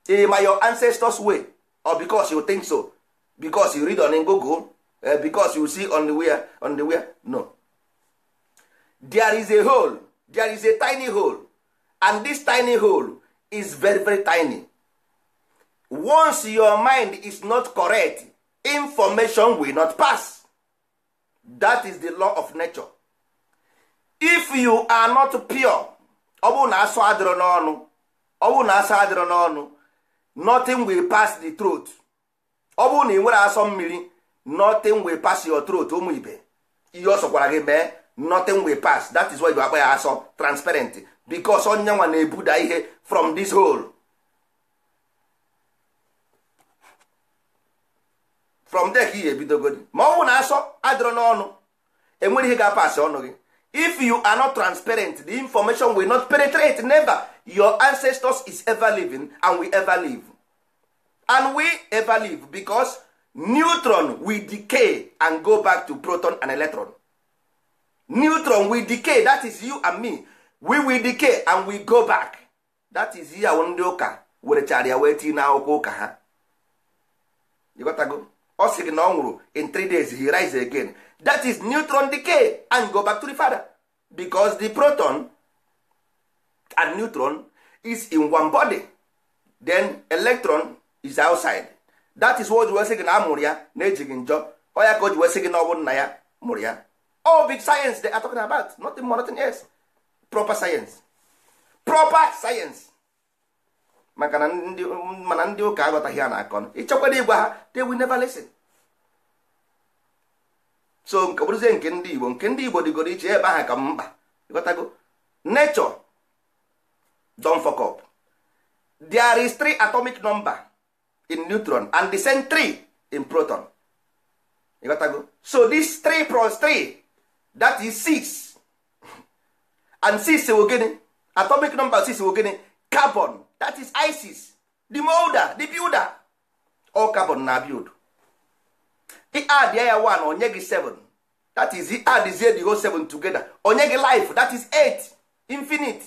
it ma your ancestors way or because you think so because you read on Google uh, because you see on the where on the no there is a hole there is a tiny hole and this tiny hole is very very tiny once your mind is not correct information will not pass that is the law of nature if you are not pure ọ bụrụ na asụ adịrọ n'ọnụ ọ bụrụ na asụ adịrọ n'ọnụ nothing will pass the throat ọ bụrụ na ị nwere asọ mmiri nothing will pass your throat ụmụ ibe ihe ọ sọkwara gị mee nothing will pass that is why you akpa ya asọ transparent because onye nwa na-ebuda ihe from this hole from there ka ị ebidogodi ma ọ bụ na asọ adịrọ n'ọnụ enwere ihe ga-apasị ọnụ gị if you are not transparent the information will not penetrate never your ancestors is ever living and we ever live and we ever live because neutron will decay and go back to proton and electron neutron will decay that is you and me we will decay and we go back that is ya ndị ụka werechara ya wee tinye n'akwụkwọ ụka ha go. ọ sị gị na ọ nwụrụ in three days he rise again that is neutron decay and go back to the father because the proton and neutron is in one body then electron is outside that is what wee sị gị na a mụrụ ya na-ejighị njọ ọ ka o ji wee sị gị na ọ bụ nna ya mụrụ ya all big science they are talking about nothing more nothing else proper science proper science maka na ndị mana ndị ụka aghọtaghị a na-akọ ịchọkwara igwe ha they will never listen so nke bụrụzie nke ndị igbo nke ndị igbo dịgoro iche ebe ahụ ka mkpa ịghọtago nature don fuck up there is three atomic number in neutron and the same three in proton ịghọtago so this three plus three that is six and six wụ gịnị atomic number six wụ gịnị carbon that is isis the molder the builder all carbon na build the add ya one onye gị 7 that is the add is the whole seven together onye gị life that is 8 infinite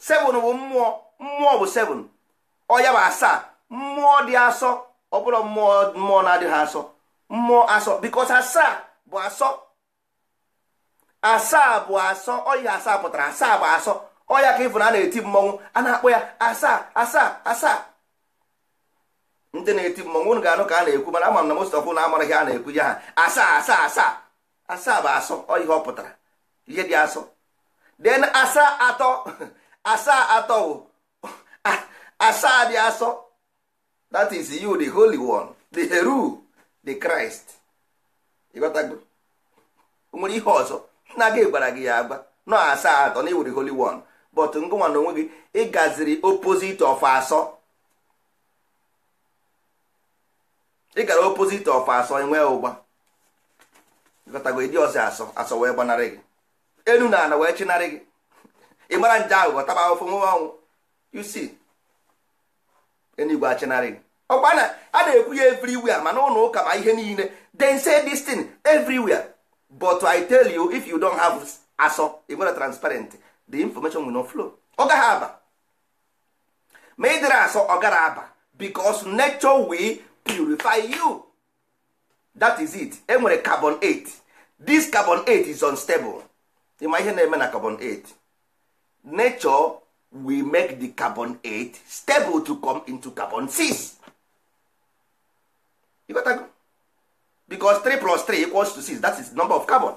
7 bụ mmụọ mmụọ bụ 7 ọya bụ asaa mmụọ dị asọ ọ bụrụ mmụọ mmụọ na-adịghị asọ mmụọ asọ bikos asaa bụ asọ asaa bụ asọ ọya asaa pụtara asaa bụ asọ ọya ka ịfụ na a na-eti mmọnwụ a na-akpọ ya asaa asaa asaa ndị na-eti mmọnwụ unu ga-anụ ka a na-ekwu mana ama m na of na amaraghị a na-ekwu ya ha asaa asaa asaa asaa bụ asọ ọ ihe ọ pụtara ihe dị asọ den asaa atọ [LAUGHS] asaa atọ wụ [LAUGHS] ah, asaa dị asọ that is you the holy one the heru the christ ịghọtago nwere ihe ọzọ nna gị gwara gị ya agba nọ asaa atọ na iwu the holy one but ngụnwa na onwe gị ịgaziri opposite of asọ ịgara gara opposite of asọ enwee ụgba gọtago ịdị ọsị asọ asọ wee gbanarị gị enu na ala wee chinarị gị ị mara nje aghụghọ taba ahụfụ nwe ọnwụ you see enigwe achinarị gị ọkwa na a na-ekwu ya everywhere mana ụlọ ụka ma ihe niile then say this thing everywhere but i tell you if you don't have asọ ị nwere transparent the information will not flow ọ gaghị aba ma ị dịrị asọ ọ gara aba because nature will purify you that is it enwere carbon 8 this carbon 8 is unstable ịma ihe na-eme na carbon 8 nature will make the carbon 8 stable to come into carbon 6 you got go? because 3 plus 3 equals to 6 that is the number of carbon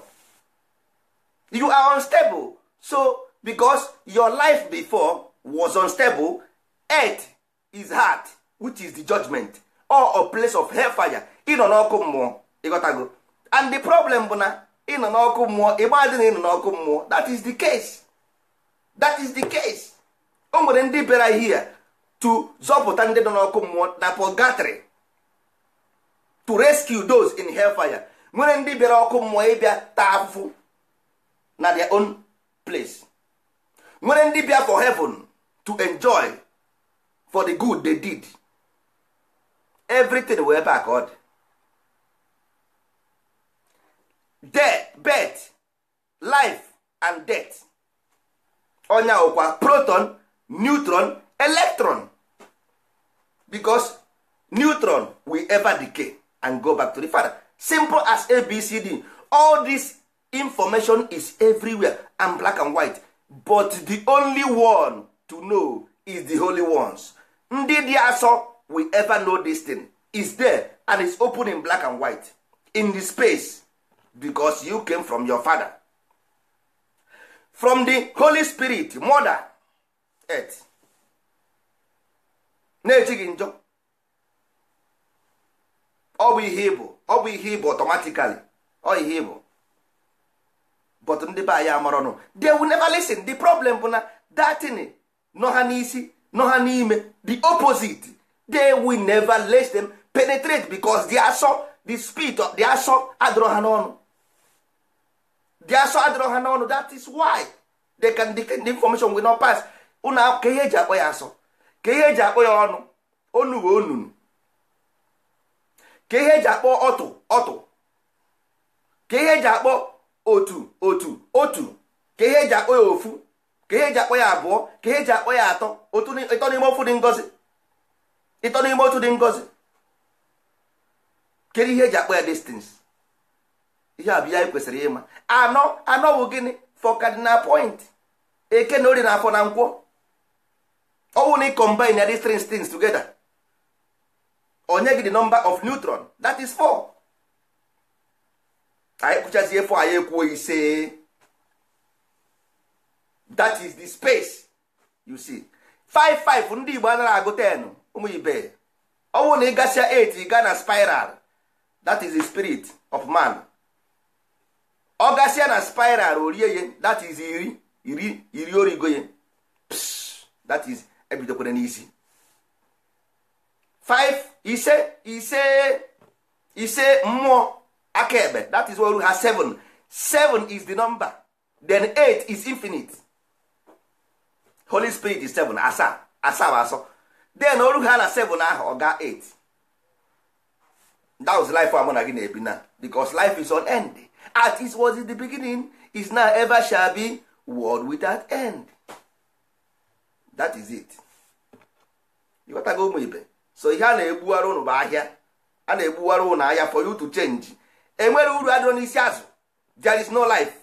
you are unstable so because your life before was unstable earth is hard which is the judgment or a place of hellfire ịnọ n'ọkụ mmụọ ịghọtago and the problem bụ na ịnọ n'ọkụ mmụọ ịgbadị na ịnọ n'ọkụ mmụọ that is the case that is the case o nwere ndị bịara here to zọpụta ndị nọ n'ọkụ mmụọ na purgatory to rescue those in hellfire nwere ndị bịara ọkụ mmụọ ịbịa taa afụfụ na their own place nwere ndị for heaven to enjoy for the good they did everything wee ever accord. ọ dị death birth life and death ọnya proton neutron electron because neutron will ever decay and go back to the father simple as abcd all this information is everywhere and black and white but the only one to know is the holy ones ndị dị asọ we ever know this thing is there and is open in black and white in the space becos you came from your father from the holy spirit mother earth na-echi njọ ọ bụ ihe ọ bụ ihe automatically ọ ihe but ndị be anyị amarọnụ they will never listen the problem bụ na datin nọ ha n'isi nọ ha n'ime the opposite they we never let them penetrate because the asọ the spirit of the asọ adịrọ ha n'ọnụ the asọ adịrọ ha n'ọnụ that is why they can the, information will not pass ụnụ ka ihe eji akpọ ya asọ ka ihe eji akpọ ya ọnụ onu we onunu ka ihe eji akpọ ọtụ ọtụ ka ihe eji akpọ otu otu otu ka ihe eji akpọ ya ofu ka ihe eji akpọ ya abụọ ka ihe eji akpọ ya atọ ịtọ n'ime ofu dị ngozi ịtọ n'ime otu dị ngozi kedu ihe eji akpọ ya distance ihe abụ ya kwesịrị ịma anọ anọ bụ gịnị for cardinal point eke na ori na afọ na nkwọ ọ na combine ya distance tugeda together onye gị dị nọmba of neutron that is four. anyị kụchazie fọ anyị ekwuo ise that is the space you see five ndị Igbo anaghị agụ 10 ụmụ ibe ọ na ị gasịa 8 ị gaa na spiral that is the spirit of man ọ gasịa na spiral orie ye that is iri iri iri origo ye that is ebidokwere n'isi 5 ise ise ise mmụọ akaebe that is oru ha 7 7 is the number then 8 is infinite holy spirit is 7 asaa asaa asọ then oru ha na 7 ahụ ọ eight 8 that was life amụ na gị na-ebi na because life is on end as it was in the beginning is now ever shall be world without end that is it ịghọtago ụmụ ibe so ihe a na-egbuwara ụnụ bụ ahịa a na-egbuwara ụnụ ahịa for you to change enwere uru adịrọ n'isi azụ there is no life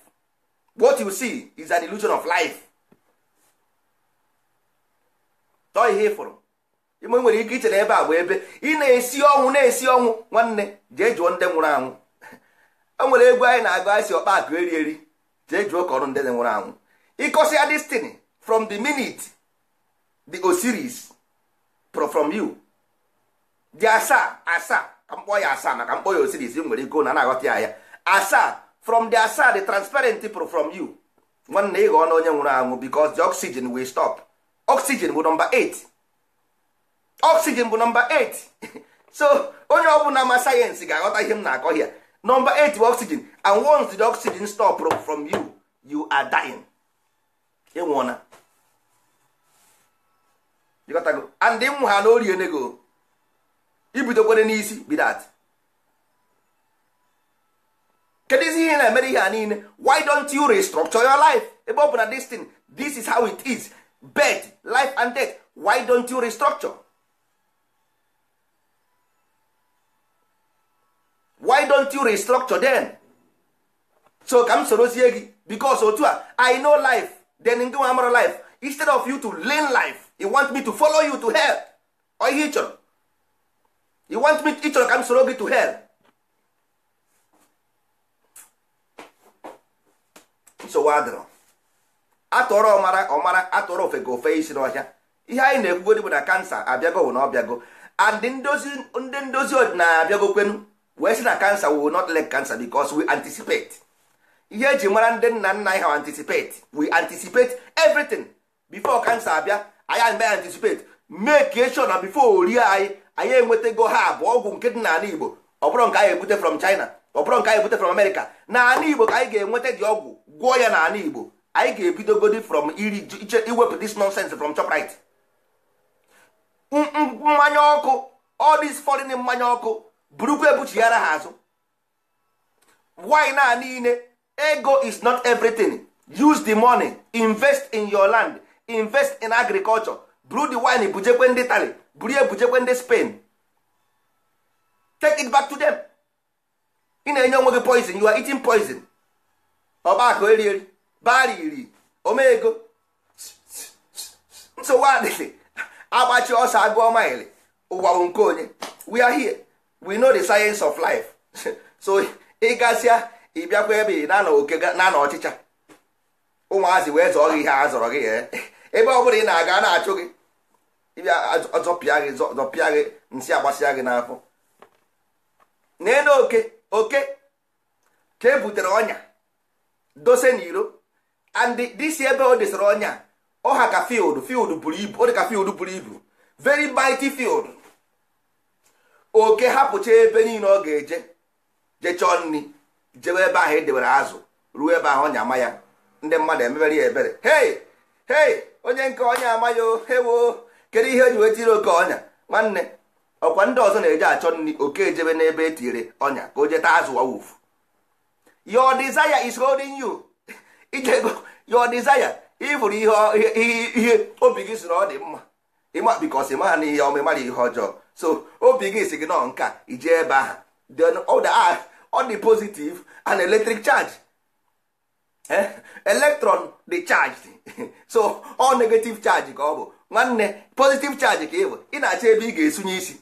what you see is an illusion of life tọọ ihe ịfụrụ ime nwere ike ichere ebe a bụ ebe ị na-esi ọnwụ na-esi ọnwụ nwanne jee jụọ ndị nwụrụ anwụ e [LAUGHS] nwere egwu anyị na-agụ anyị si ọkpa akụ eri eri jee jụọ ka ọrụ ndị nwụrụ anwụ ịkọsịa destiny from the minute the Osiris from you dị asaa asaa ka mkpọ ya asaa maka mkpọ ya osiris nwere ego na na-aghọta ya ya asaa from the asaa the transparent pro from you nwanne ị ghọọ na onye nwụrụ anwụ because the oxygen will stop oxygen bụ nọmba 8 oxygen bụ nọmba [LAUGHS] 8 so onye ọbụla ma sayensị ga-aghọta ihe m na-akọ ya nọmba 8 bụ oxygen and once the oxygen stop from you you are dying ịnwụọna and dị ha na ibidokwere n'isi bidat kedu izi ihe na-emere ihe a niile why don't you restructure your life ebe ọ bụ na this thing this is how it is birth life and death why don't you restructure why don't you restructure then so ka m sorozie gị because otu a i know life then ngị nwa life instead of you to learn life e want me to follow you to hell ọ ihe ị chọrọ you want me ịchọrọ ka m soro gị to hell nsogbu adịrọ atụrọ ọmara ọmara atụrọ ofe ga ofe isi n'ọhịa ihe anyị na-ekwugodi bụ na kansa abịago wụ na ọbịago and ndị ndozi ọdịnala abịago kwenu wee sị na kansa we will not let cancer because we anticipate ihe eji mara ndị nna nna anyị ha anticipate we anticipate everything before cancer abịa anyị anaghị anticipate make sure na before orie anyị anyị enwetago ha abụọ ọgwụ nke dị n'ala igbo ọ bụrụ nke anyị ebute from china ọ bụrụ nke anyị ebute from america n'ala igbo ka anyị ga-enweta dị ọgwụ gwụọ ya n'ala igbo anyị ga-ebidogodi from iri iwepụ this nonsense from Shoprite mmanya ọkụ all this mmanya ọkụ burukwa ebuchighara ha azụ wine a niile ego is not everything use the money invest in your land invest in agriculture brew the wine bujekwe ndị tali buru ya bujekwe ndị Spain take it back to them ị na-enye onwe gị poison you are eating poison ọgbakọ eri eri bara iri omego nsogbu adịghị agbachi ọsọ agụọ maịlị ụwa bụ nke onye we are here we know the science of life [LAUGHS] so ị gasịa eh? ebe ị na na ọchịcha ụmụazị wee zọọ gị ihe a zọrọ gị ebe ọ bụla ị na-aga na-achụ gị ọzọpịa gị nsị agbasịa gị n'afọ nee na oke oke ka e butere ọnya dose n'iro and disi ebe o desara ọnya ọha ka field field buru ibu ọ dị ka field buru ibu very mighty field oke hapụcha ebe niile ọ ga-eje jechọọ nri jewe ebe ahụ edewere azụ ruo ebe ahụ ọnya ama ya ndị mmadụ emebere ya ebere hei hei onye nke ọnya ama ya o hewo kedu ihe eji wee tiri oke ọnya nwanne ọkwa ndị ọzọ na-eje achọ nri oke ejebe n'ebe e tiri ọnya ka o jeta azụ wawuf your desire is holding you [LAUGHS] ijego your desire ịfụrụ ihe obi gị siri ọ dị mma ịma bikos ịmara na ihe ọma ịmara ihe ọjọọ so obi gị si gị nọ nka ije ebe ahụ then ọ dị positive an electric charge electron dị charged [LAUGHS] so ọ negative charge ka ọ bụ nwanne positive charge ka ị ị na-achọ ebe ị ga-esunye isi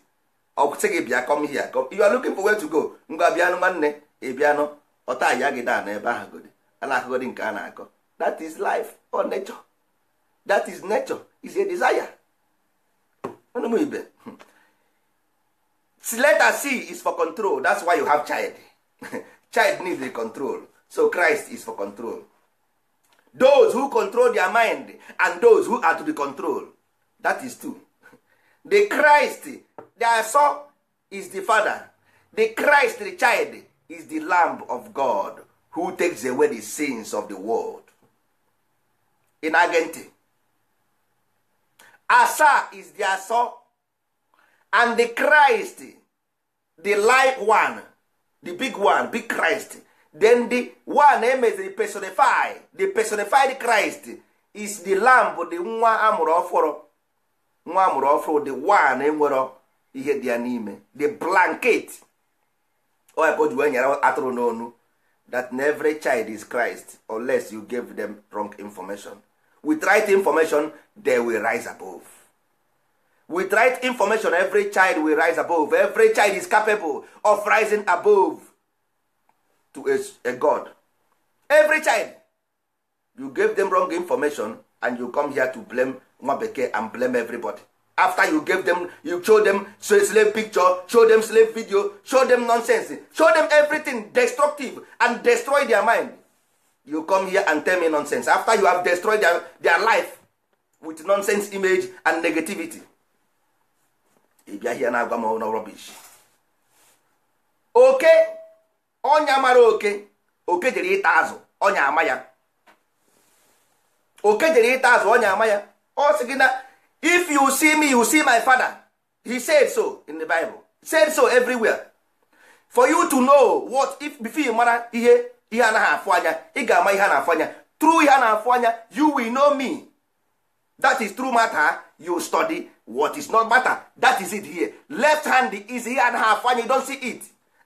ọsị gị bịa come here you are looking for where to go ngwa bịanụ nwanne ị bịanụ ọta aya gị daa n'ebe ahụ nke a na-akọ that is life or nature that is nature is a desire ọnụmụ ibe hmm. letter c is for control that's why you have child [LAUGHS] child needs the control so christ is for control those who control their mind and those who are to the control. that is two the christ the son is the father the christ the child is the lamb of god who takes away the sins of the world in agente asa is the aso and the christ the light one the big one big christ then the one emeziri eh, personify the personified christ is the lamb the nwa amụrụ ọfụrụ nwa amụrụ ọfụrụ the one nwere ihe dị ya n'ime the blanket oya ka o ji wee nyere atụrụ n'onu that every child is Christ unless you give them wrong information with right information they will rise above with right information every child will rise above every child is capable of rising above to a, a God every child you give them wrong information and you come here to blame nwa bekee and blame everybody after you gave them you show them slave picture show them slave video show them nonsense show them everything destructive and destroy their mind you come here and tell me nonsense after you have destroyed their, their life with nonsense image and negativity ị bịa na-agwa m na oke ọnya mara oke oke jere ịta azụ ọnya ama ya oke jere ịta azụ ọnya ama ya ọ sị gị na if you see me you see my father he said so in the bible said so everywhere for you to know what if before you mara ihe ihe anaghị afụ anya ị ga-ama ihe a na-afụ anya ihe a na-afụ anya you will know me that is true matter you study what is not matter that is it here left hand is ihe anaghị afụ anya you don see it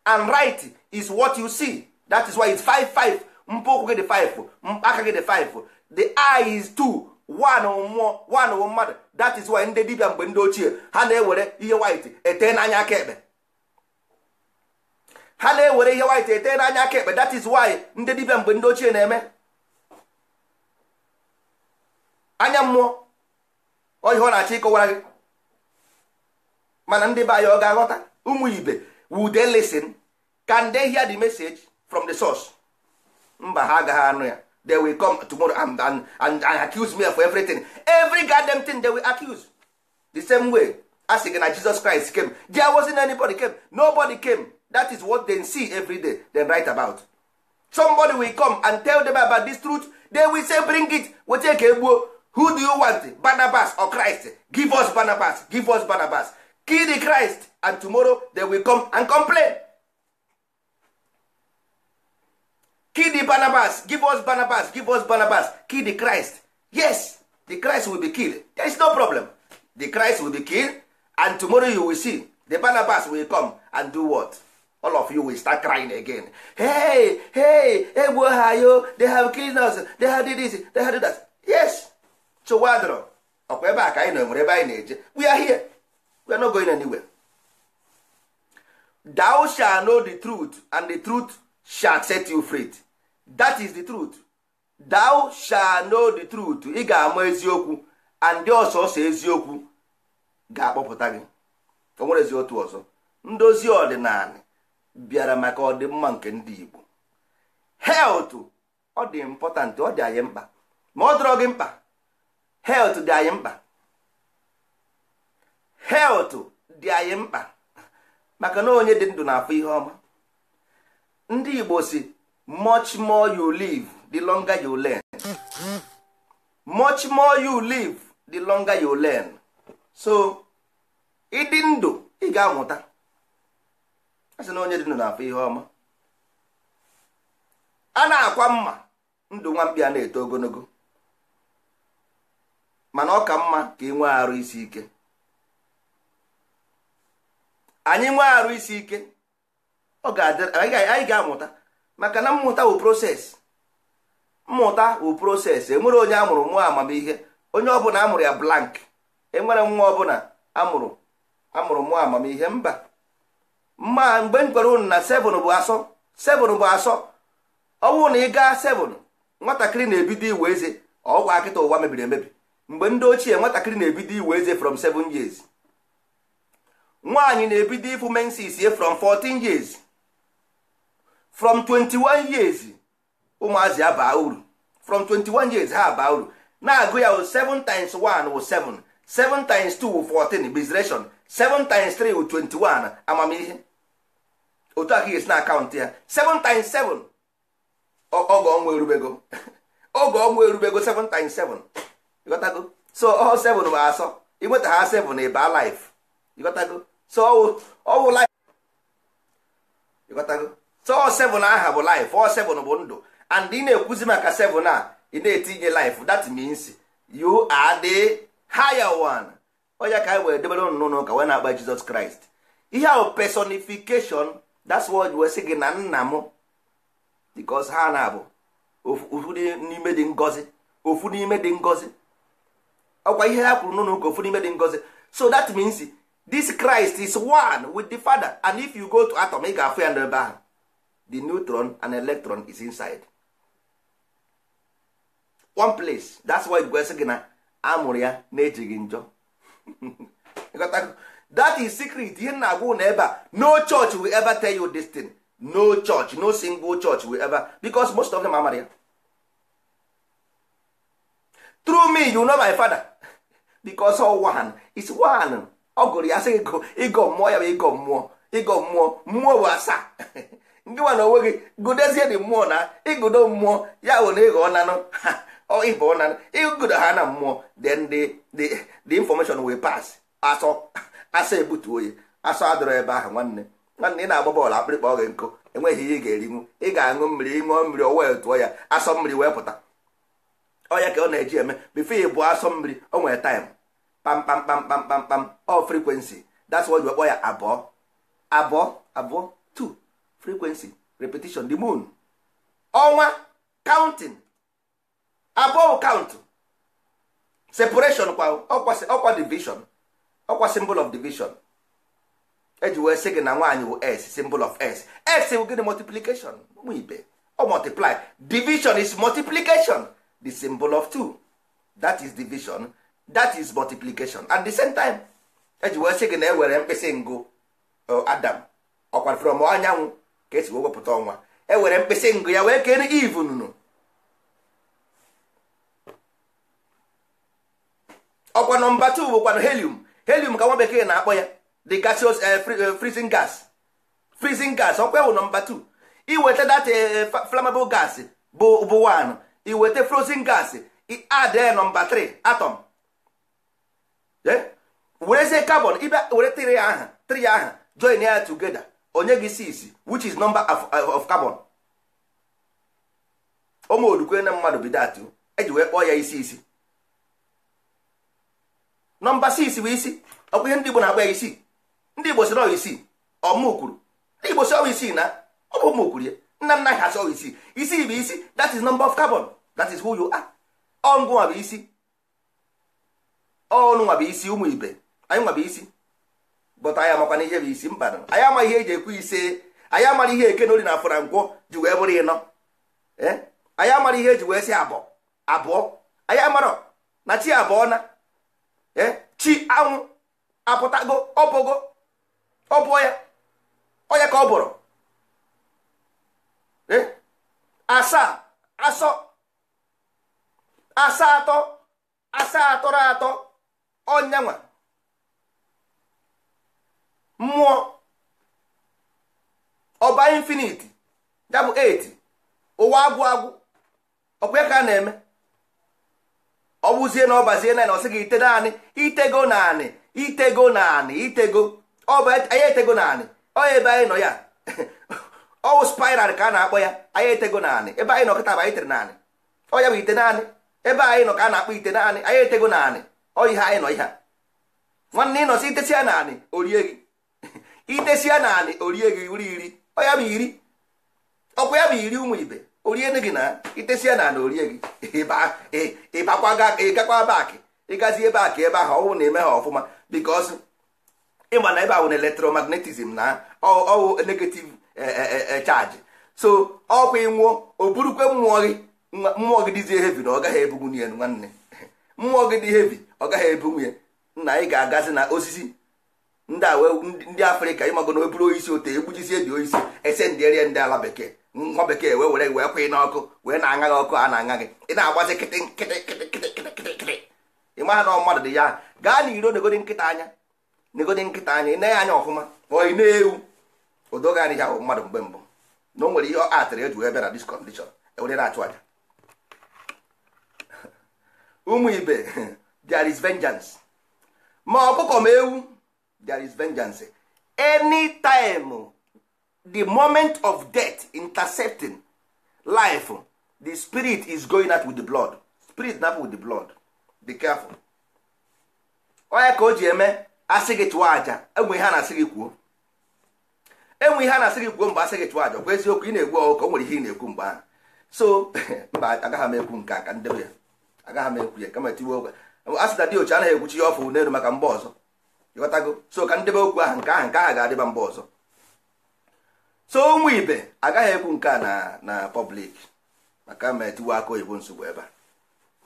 and right is what you see that is why it's five five mpụ ụkwụ gị dị 5 aka gị dị five the eye is two. mmụọ wụ mmadụ that is why ndị dibia mgbe ndị ochie ha na-ewere ihe white ete n'anya aka ekpe ha na-ewere ihe white ete n'anya aka ekpe that is why ndị dibia mgbe ndị ochie na-eme anya mmụọ oyihe ọ na-achọ ịkọwara gị mana ndị be anyị ọ ga-aghọta ụmụ ibe would they listen can they hear the message from the source mba ha agaghị anụ ya they will come tomorrow and, and, and, and accuse me for everything every goddamn thing they will accuse the same way as again gị na Jesus Christ came there wasn't anybody came nobody came that is what they see every day they write about somebody will come and tell them about this truth they will say bring it wete ka egbuo who do you want Barnabas or Christ give us Barnabas give us Barnabas kill the Christ and tomorrow they will come and complain kill the barnabas give us barnabas give us barnabas kill the christ yes the christ will be killed there is no problem the christ will be killed and tomorrow you will see the barnabas will come and do what all of you will start crying again hey hey egbuo ha yo they have killed us they have did this they have did that yes chowadro ọkwa ebe a ka anyị ebe anyị na-eje we are here we are not going anywhere thou shall know the truth and the truth shall set you free that is the truth thou shall know the truth ị ga-ama eziokwu and ndị ọsọsọ eziokwu ga-akpọpụta gị o nwerezi otu ọzọ ndozi ọdịnala bịara maka ọdịmma nke ndị Igbo health ọ dị important ọ dị anyị mkpa ma ọ dọrọ gị mkpa health dị anyị mkpa health dị anyị mkpa maka na onye dị ndụ na afọ ihe ọma ndị Igbo si much more you live the longer you learn much more you live the longer you learn so ịdị ndụ ị ga-amụta a sị na onye dị ndụ na-afụ ihe ọma a na-akwa mma ndụ nwambịa na-eto ogologo mana ọ ka mma ka ị nwee arụ isi ike anyị nwee arụ isi ike anyị ga-amụta maka na mmụta wụ proses mmụta wụ proses enwere onye amụrụ mụọ amamihe onye ọbụla amụrụ ya blank enwere nwa ọbụla amụrụ amụrụ mụọ amamihe mba mma mgbe m gwara unu na 7 bụ asọ 7 bụ asọ ọnwụ na ị gaa 7 nwatakịrị na-ebido iwe eze ọgwa akịta ụwa mebiri emebi mgbe ndị ochie nwatakịrị na-ebido iwe eze from 7 years nwaanyị na-ebido ịfụ mensis from 14 years from 21 years ụmụazị ya baa uru from 21 years ha baa uru na-agụ ya 7 times 1 wụ 7 7 times 2 wụ 14 bizration 7 times 3 wụ 21 amamihe otu aka ga-esi na akaụntụ ya 7 times 7 oge ọnwa erubego oge [LAUGHS] ọnwa erubego 7 times 7 ịghọtago so ọ 7 bụ asọ ịnweta ha 7 ịba life ịghọtago so ọ wụ life so seven aha bụ life ọ seven bụ ndụ and ị na-ekwuzi maka seven a ị na-etinye life dat means you are the higher one onye ka anyị were debere ụnụ n'ụka wee na-akpa Jizọs Kraịst ihe ahụ personification that's what wee sị gị na nna m because ha na-abụ ofu n'ime dị ngozi ofu ọkwa ihe ha kwuru n'ụlọ ụka ofu n'ime dị ngọzi so that means this Christ is one with the Father and if you go to atom ị ga-afụ ya n'ebe ahụ the neutron and electron is inside one place that's why gwesị gị na amụrụ ya na-ejighị njọ [LAUGHS] that is secret ihe na agwa na ebe a no church will ever tell you this thing no church no single church will ever because most of them are ya through me you know my father [LAUGHS] because all one is one ọ gụrụ ya sị ịgọ mmụọ ya bụ ịgọ mmụọ ịgọ mmụọ mmụọ bụ asaa [LAUGHS] ndị nwa na onwe gị gụdezie dị mmụọ na ịgụdo mmụọ ya bụ na ịghọ nanụ ịbụ nanụ ịgụdo ha na mmụọ then the the the information will pass asọ asọ ebutuo ya asọ adọrọ ebe ahụ nwanne nwanne ị na-agba bọọlụ akpịrịkpa oge nkụ enweghị ihe ị ga-erinwu ị ga-aṅụ mmiri ṅụọ mmiri o wee tụọ ya asọ mmiri wee pụta ọya ka ọ na-eji eme bifo ị bụ asọ mmiri o nwere taịm kpamkpamkpamkpamkpam ọ frekwensi that's why kpọ ya abụọ abụọ abụọ frequency repetition the moon ọnwa counting above count separation kwa ọkwa division ọkwa symbol of division eji wee sị gị na nwaanyị bụ s symbol of s s bụ gịnị multiplication ụmụ ibe ọ multiply division is multiplication the symbol of two that is division that is multiplication at the same time eji wee sị gị na ewere mkpịsị ngụ uh, adam ọkwa from anyanwụ ka esi wepụta ọnwa e were mkpịsị ngụ ya wee kere ivu nunu ọkwa nọmba 2 bụkwanụ helium helium ka nwa bekee na-akpọ ya the gaseous eh, eh, freezing gas freezing gas ọkwa ewu nọmba 2 iweta data flammable gas bụ bụ 1 iweta frozen gas add eh, nọmba 3 atom werezie carbon were tiri ya aha tiri ya aha join ya together. onye gị 6 which is number of carbon ụmụ ụmụolukwe na mmadụ bidat eji wee kpọọ ya isi isi nọmba 6 bụ isi ọ bụ ihe ndị Igbo na-agba ya isi ndị Igbo sịrị ọwa isii ọmụkwuru ndị Igbo sị ọwa isii na ọ bụ ụmụ ụmụkwuru ya nna nna ha sị ọwa isii isi bụ isi that is number of carbon that is who you are ọngụ nwa bụ isi ọnụ nwa bụ isi ụmụ ibe anyị nwa bụ isi bụta anyị amakwana ihe bụ isi mba anyị ama ihe eji ekwu ise anyị amara ihe eke n'oli na afọ na nkwọ ji wee bụrụ ịnọ anyị amara ihe eji wee sị abụọ abụọ anyị amara na chi abụọ na chi anwụ apụtago ọbụgo ọbụọ ya onye ka ọ bụrụ eh? asaa asọ asaa atọ asaa atọrọ atọ ọnyanwa mmụọ ọba infiniti ya bụ 8 ụwa agwụ agwụ ka a na-eme ọ bụzie na ọbazie na gị ite naanị itego naanị itego naanị itego anyị etego naanị ọya ebe anyị ya [LAUGHS] ọwụ spiral ka a na-akpọ ya anyị etego naanị ebe anyị nọ ka a na-akpọ ite naanị anyị etego naanị ọ ya naanị o gị idesia na anị orie gị uri iri ọya ma iri ọkwa ya bụ iri ụmụ ibe orie gị na itesia na anị orie gị ịgakwa baakị ịgazi ebe ebe ahụ ọwụ na-eme ha ọfụma bikos ịma na ebe ahụ na elektromagnetism na ọwụ negative e, e, e, chaji so ọkwa ịnwụọ o burukwe mmụọ gị mmụọ gị dịzie hevi na ọ gaghị ebunwu nwanne [LAUGHS] mmụọ gị dị hevi ọ gaghị ebunwu ya nna anyị ga-agazi na osisi ndị afrịka ịmago na eburu oisi ote egbujisie dị oisi ese ndị erie ndị ala bekee nwa bekee wee were wee kwee n'ọkụ wee na-aṅa gị ọkụ a na-aṅa gị ị na-agbazi kịtị nkịtị ị maha na mmadụ dị ya gaa na iro negodi nkịta anya negodi nkịta anya ị na-anya ọfụma ọ na-ewu odoga adịghị ahụ mmadụ mgbe mbụ na o nwere ihe ọ atịrị eji wee bịa na diskọndishọn ewere na-achụ aja [LAUGHS] ụmụ ibe [LAUGHS] there is vengeance ma ọkụkọ ma ewu there is vengeance any time the moment of death intercepting life the spirit is going out with the blood spirit na with the blood be careful onye ka o ji eme asị gị chụọ aja enwe ihe a na-asị gị kwuo enwe ihe a na-asị gị kwuo mgbe asị gị chụọ aja kwa eziokwu ị na-egwu ọgụ ka o nwere ihe ị na-ekwu mgbe ahụ so [LAUGHS] mba agaghị m ekwu nke a ka ndebe ya agaghị m ekwu ya kama tiwe okwe asị dị ochi anaghị ekwuchi ya ọfụ n'elu maka mgbe ọzọ ịghọtago so ka ndebe okwu ahụ nke ahụ nke ahụ ga-adịba mba ọzọ so ụmụ ibe agaghị ekwu nke a na na pọblik maka ma etiwe aka oyibo nsogbu ebe a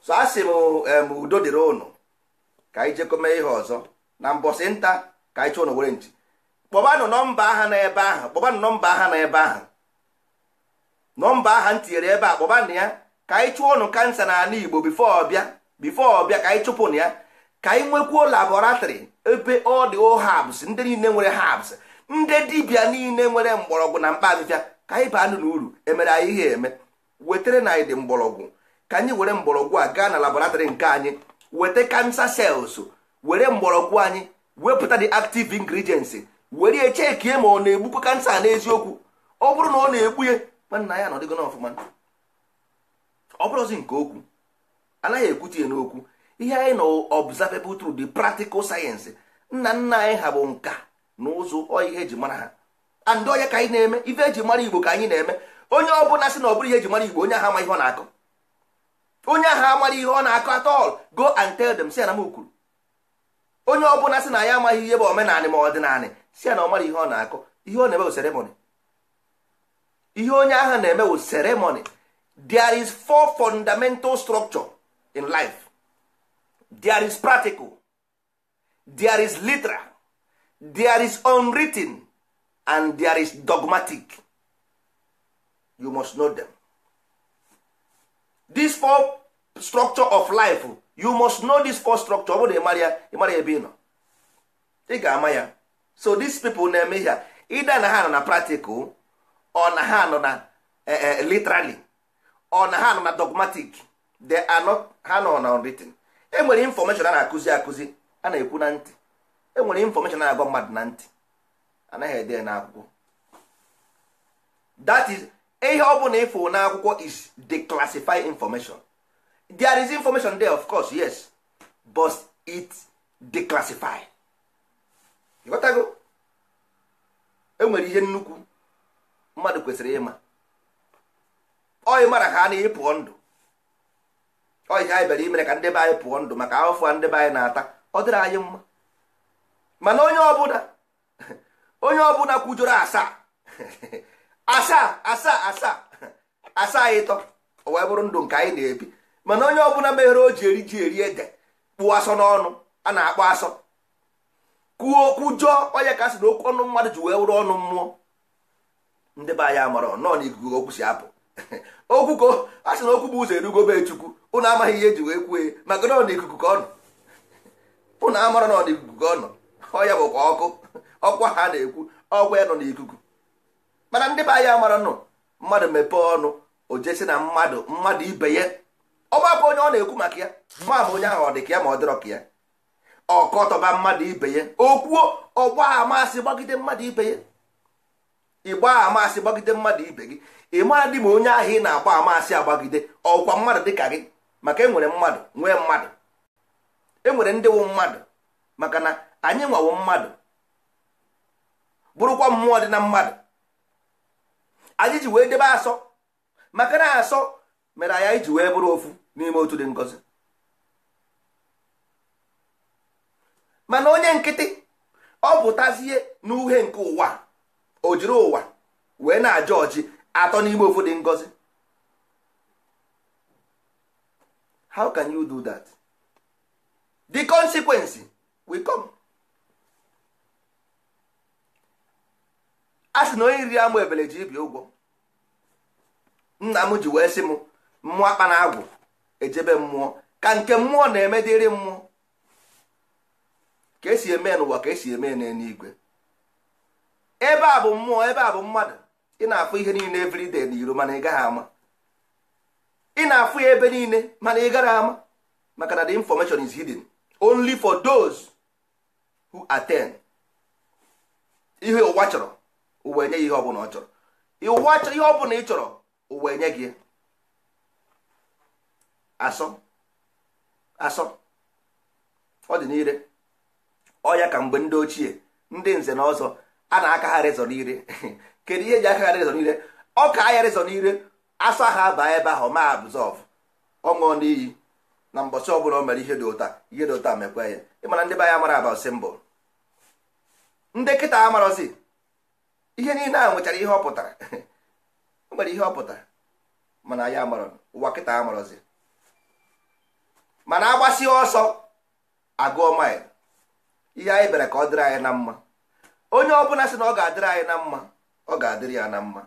so a sị m udo dịrị ụnụ ka anyị jekọme ihe ọzọ na mbọsị nta ka anyị chọọ nwere nchi kpọbanụ nọmba aha na ebe ahụ kpọbanụ nọmba aha na ebe ahụ nọmba aha m tinyere ebe a kpọbanụ ya ka anyị chụọ ụnụ kansa n'ala Igbo bifo ọbịa bifo ọbịa ka anyị chụpụnụ ya ka anyị nwekwuo labọratrị ebe ọ dị habs ndị niile nwere habs ndị dibịa niile nwere mgbọrọgwụ na mkpa ka anyị baa na uru emere anyị ihe eme wetere na anyị dị mgbọrọgwụ ka anyị were mgbọrọgwụ a gaa na laboratrị nke anyị weta kansa sels were mgbọrọgwụ anyị wepụta the active ingredients were ya chekie ma ọ na-egbukwa kansa n'eziokwu ọ bụrụ na ọ na-egbu ya nwanna ya nọdịgo n'ọfụma ọ bụrụzi nke okwu anaghị ekwute ya n'okwu ihe anyị na observable through the practical science nna nna anyị ha bụ nka na ụzụ ọ ihe eji mara ha and onye ka anyị na-eme ife eji mara igbo ka anyị na-eme onye ọ bụla sị na ọ bụrụ ihe eji mara igbo onye ahụ ama ihe ọ na-akọ onye ahụ amara ihe ọ na-akọ at all go and tell them si na m kwuru onye ọ bụla sị na ya amaghị ihe bụ omenanị ma ọdịnanị si ya na ọ mara ihe ọ na-akọ ihe ọ na-eme bụ seremoni ihe onye ahụ na-eme bụ seremoni there is four fundamental structure in life there is practical there is literal there is unwritten and there is dogmatic you must know them this four structure of life you must know this four structure ọ bụrụ ịmara ebe ị nọ ị ga-ama ya so these people na-eme ihe ịda na ha nọ na practical ọ na ha nọ na eh, eh, literally ọ na ha nọ na dogmatic they are not ha nọ na unwritten enwere infọmeshọn a na-akụzi akụzi a na-ekwu na ntị enwere infọmeshọn a na-agwa mmadụ na ntị anaghị ede na akwụkwọ that is ihe ọ bụla ịfụ na akwụkwọ is declassified information there is information there of course yes but it declassified ịghọtago enwere ihe nnukwu mmadụ kwesịrị ịma ọ mara ka a na-ịpụọ ndụ ọ ihe anyị bịara imere ka ndị be anyị pụọ ndụ maka afọ a ndị be anyị na-ata ọ dịrị anyị mma mana onye ọbụla onye ọbụla kwujọrọ asaa asaa asaa asaa asaa ịtọ o wee bụrụ ndụ nke anyị na-ebi mana onye ọbụla meghere o ji eri ji eri ede kpụọ asọ n'ọnụ a na-akpọ asọ kwuo okwu jụọ onye ka asị na okwu ọnụ mmadụ ji wee wụrụ ọnụ mmụọ ndị be anyị amara nọọ na okwu si apụ okwu ka a sị na okwu bụ ụzọ erugo be chukwu ụnụ amaghị ihe eji wee kwue maka na ọ na ka ọ nọ ụnụ amara na ọ na ka ọ nọ ọ ya bụkwa ọkụ ọkwa ha na-ekwu ọkwa ya nọ n'ikuku mana ndị be anyị amara nọ mmadụ mepee ọnụ o jesi na mmadụ mmadụ ibe ya ọgbakọ onye ọ na-ekwu maka ya ma onye ahụ ọ dị ka ya ma ọ dịrọ ka ya ọkọtọba mmadụ ibe ya okwuo ọgba amasị gbagide mmadụ ibe ya ịgba amasị gbagide mmadụ ibe gị ị mara dị ma onye ahụ ị na-agba amasị agbagide ọkwa mmadụ dị ka gị maka enwere mmadụ nwee mmadụ enwere ndị wụ mmadụ maka na anyị nwawo mmadụ bụrụkwa mmụọ dị na mmadụ anyị ji wee debe asọ maka na asọ mere anyị iji wee bụrụ ofu n'ime otu dị ngozi mana onye nkịtị ọ pụtazie n'uhe nke ụwa o jiri ụwa wee na ajọ ọjị atọ n'ime ofu dị ngozi how can you do that the consequence will come a sị na onye riri amụ ebele ji ibi ụgwọ nna m ji wee sị m mmụọ akpa na agwụ ejebe mmụọ ka nke mmụọ na-eme dịrị mmụọ ka esi eme n'ụwa ka esi eme n'eluigwe ebe a bụ mmụọ ebe a bụ mmadụ ị na-afụ ihe niile everyday na iro mana ị gaghị ama ị na-afụ ya ebe niile mana ị gara ama maka na the information is hidden only for those who attend ihe ụwa chọrọ ụwa enye ya ihe ọbụla ọ chọrọ ihe ọbụla ị chọrọ ụwa enye gị asọ asọ ọ dị n'ire ọ ya ka mgbe ndị ochie ndị nze na ọzọ a na-akagharị zọ n'ire [LAUGHS] kedu ihe eji akagharị zọ n'ire ọ ka agharị zọ n'ire afọ ha baa ebe ahụ ma abzọv ọṅụọ n'iyi na mbọchị ọbụla o mere ihe dị ụta ihe dị ụta mekwa ya ịmana ndị be anyị amara aba simbụl ndị kịta amarọzi ihe niile a nwechara ihe ọ pụtara [LAUGHS] o nwere ihe ọ pụtara mana anyị amarọ ụwa kịta amarọzi mana agbasi ọsọ agụọ mail ihe anyị bịara ka ọ dịrị anyị na mma onye ọbụla sị na ọ ga-adịrị anyị na mma ọ ga-adịrị ya na mma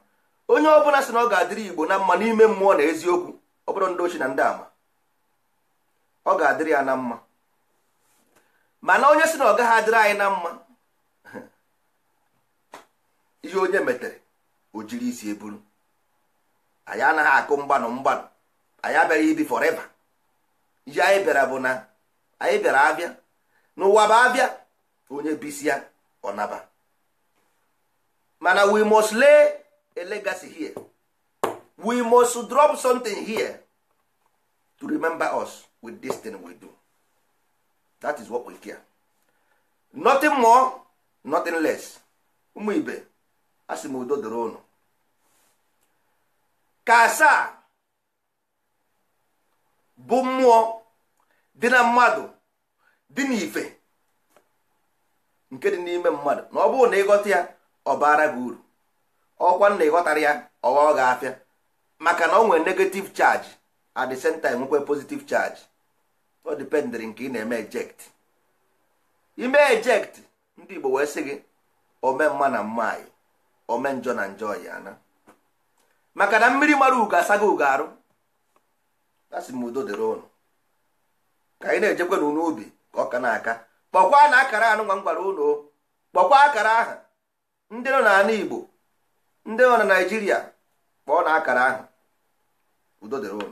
onye ọbụla si na ọ ga-adịrị igbo na mma n'ime mmụọ na eziokwu ọ bụrụ ndị ochi na ndị ama ọ ga-adịrị ya na mma mana onye si na ọ gaghị adịrị anyị na mma [LAUGHS] ihe onye metere o jiri isi eburu anyị anaghị akụ mgbanụ mgbanụ anyị abịaghị ibi fọreva ihe anyị bịara bụ na anyị bịara abịa n'ụwa bụ abịa onye bisi ya ọnaba mana we must lee. a legacy here we must drop something here to remember us with this thing we do that is what we care nothing more nothing less ụmụ ibe a sị m udo doro unu ka asaa bụ mmụọ dị na mmadụ dị ife nke dị n'ime mmadụ na ọ bụrụ na ịghọta ya ọ baara gị uru ọkwa nna ịghọtara ya ọghọ ga-afịa maka na ọ nwere negative chaji at the same time nwekwe positive charge ọ nke ị na-eme eject ime eject ndị Igbo wee sị gị ome mma na mma anyị ome njọ na njọ ya na maka na mmiri mara ugo asaghị ugo arụ asị m udo dịrị ụnụ ka anyị na-ejekwa n'ụlọ ubi ka na-aka kpọkwa na akara anụ nwa m gwara ụlọ kpọkwa akara aha ndị nọ n'ala Igbo ndị nọ na naijiria kpọọ na akara ahụ udo dịrị ụlọ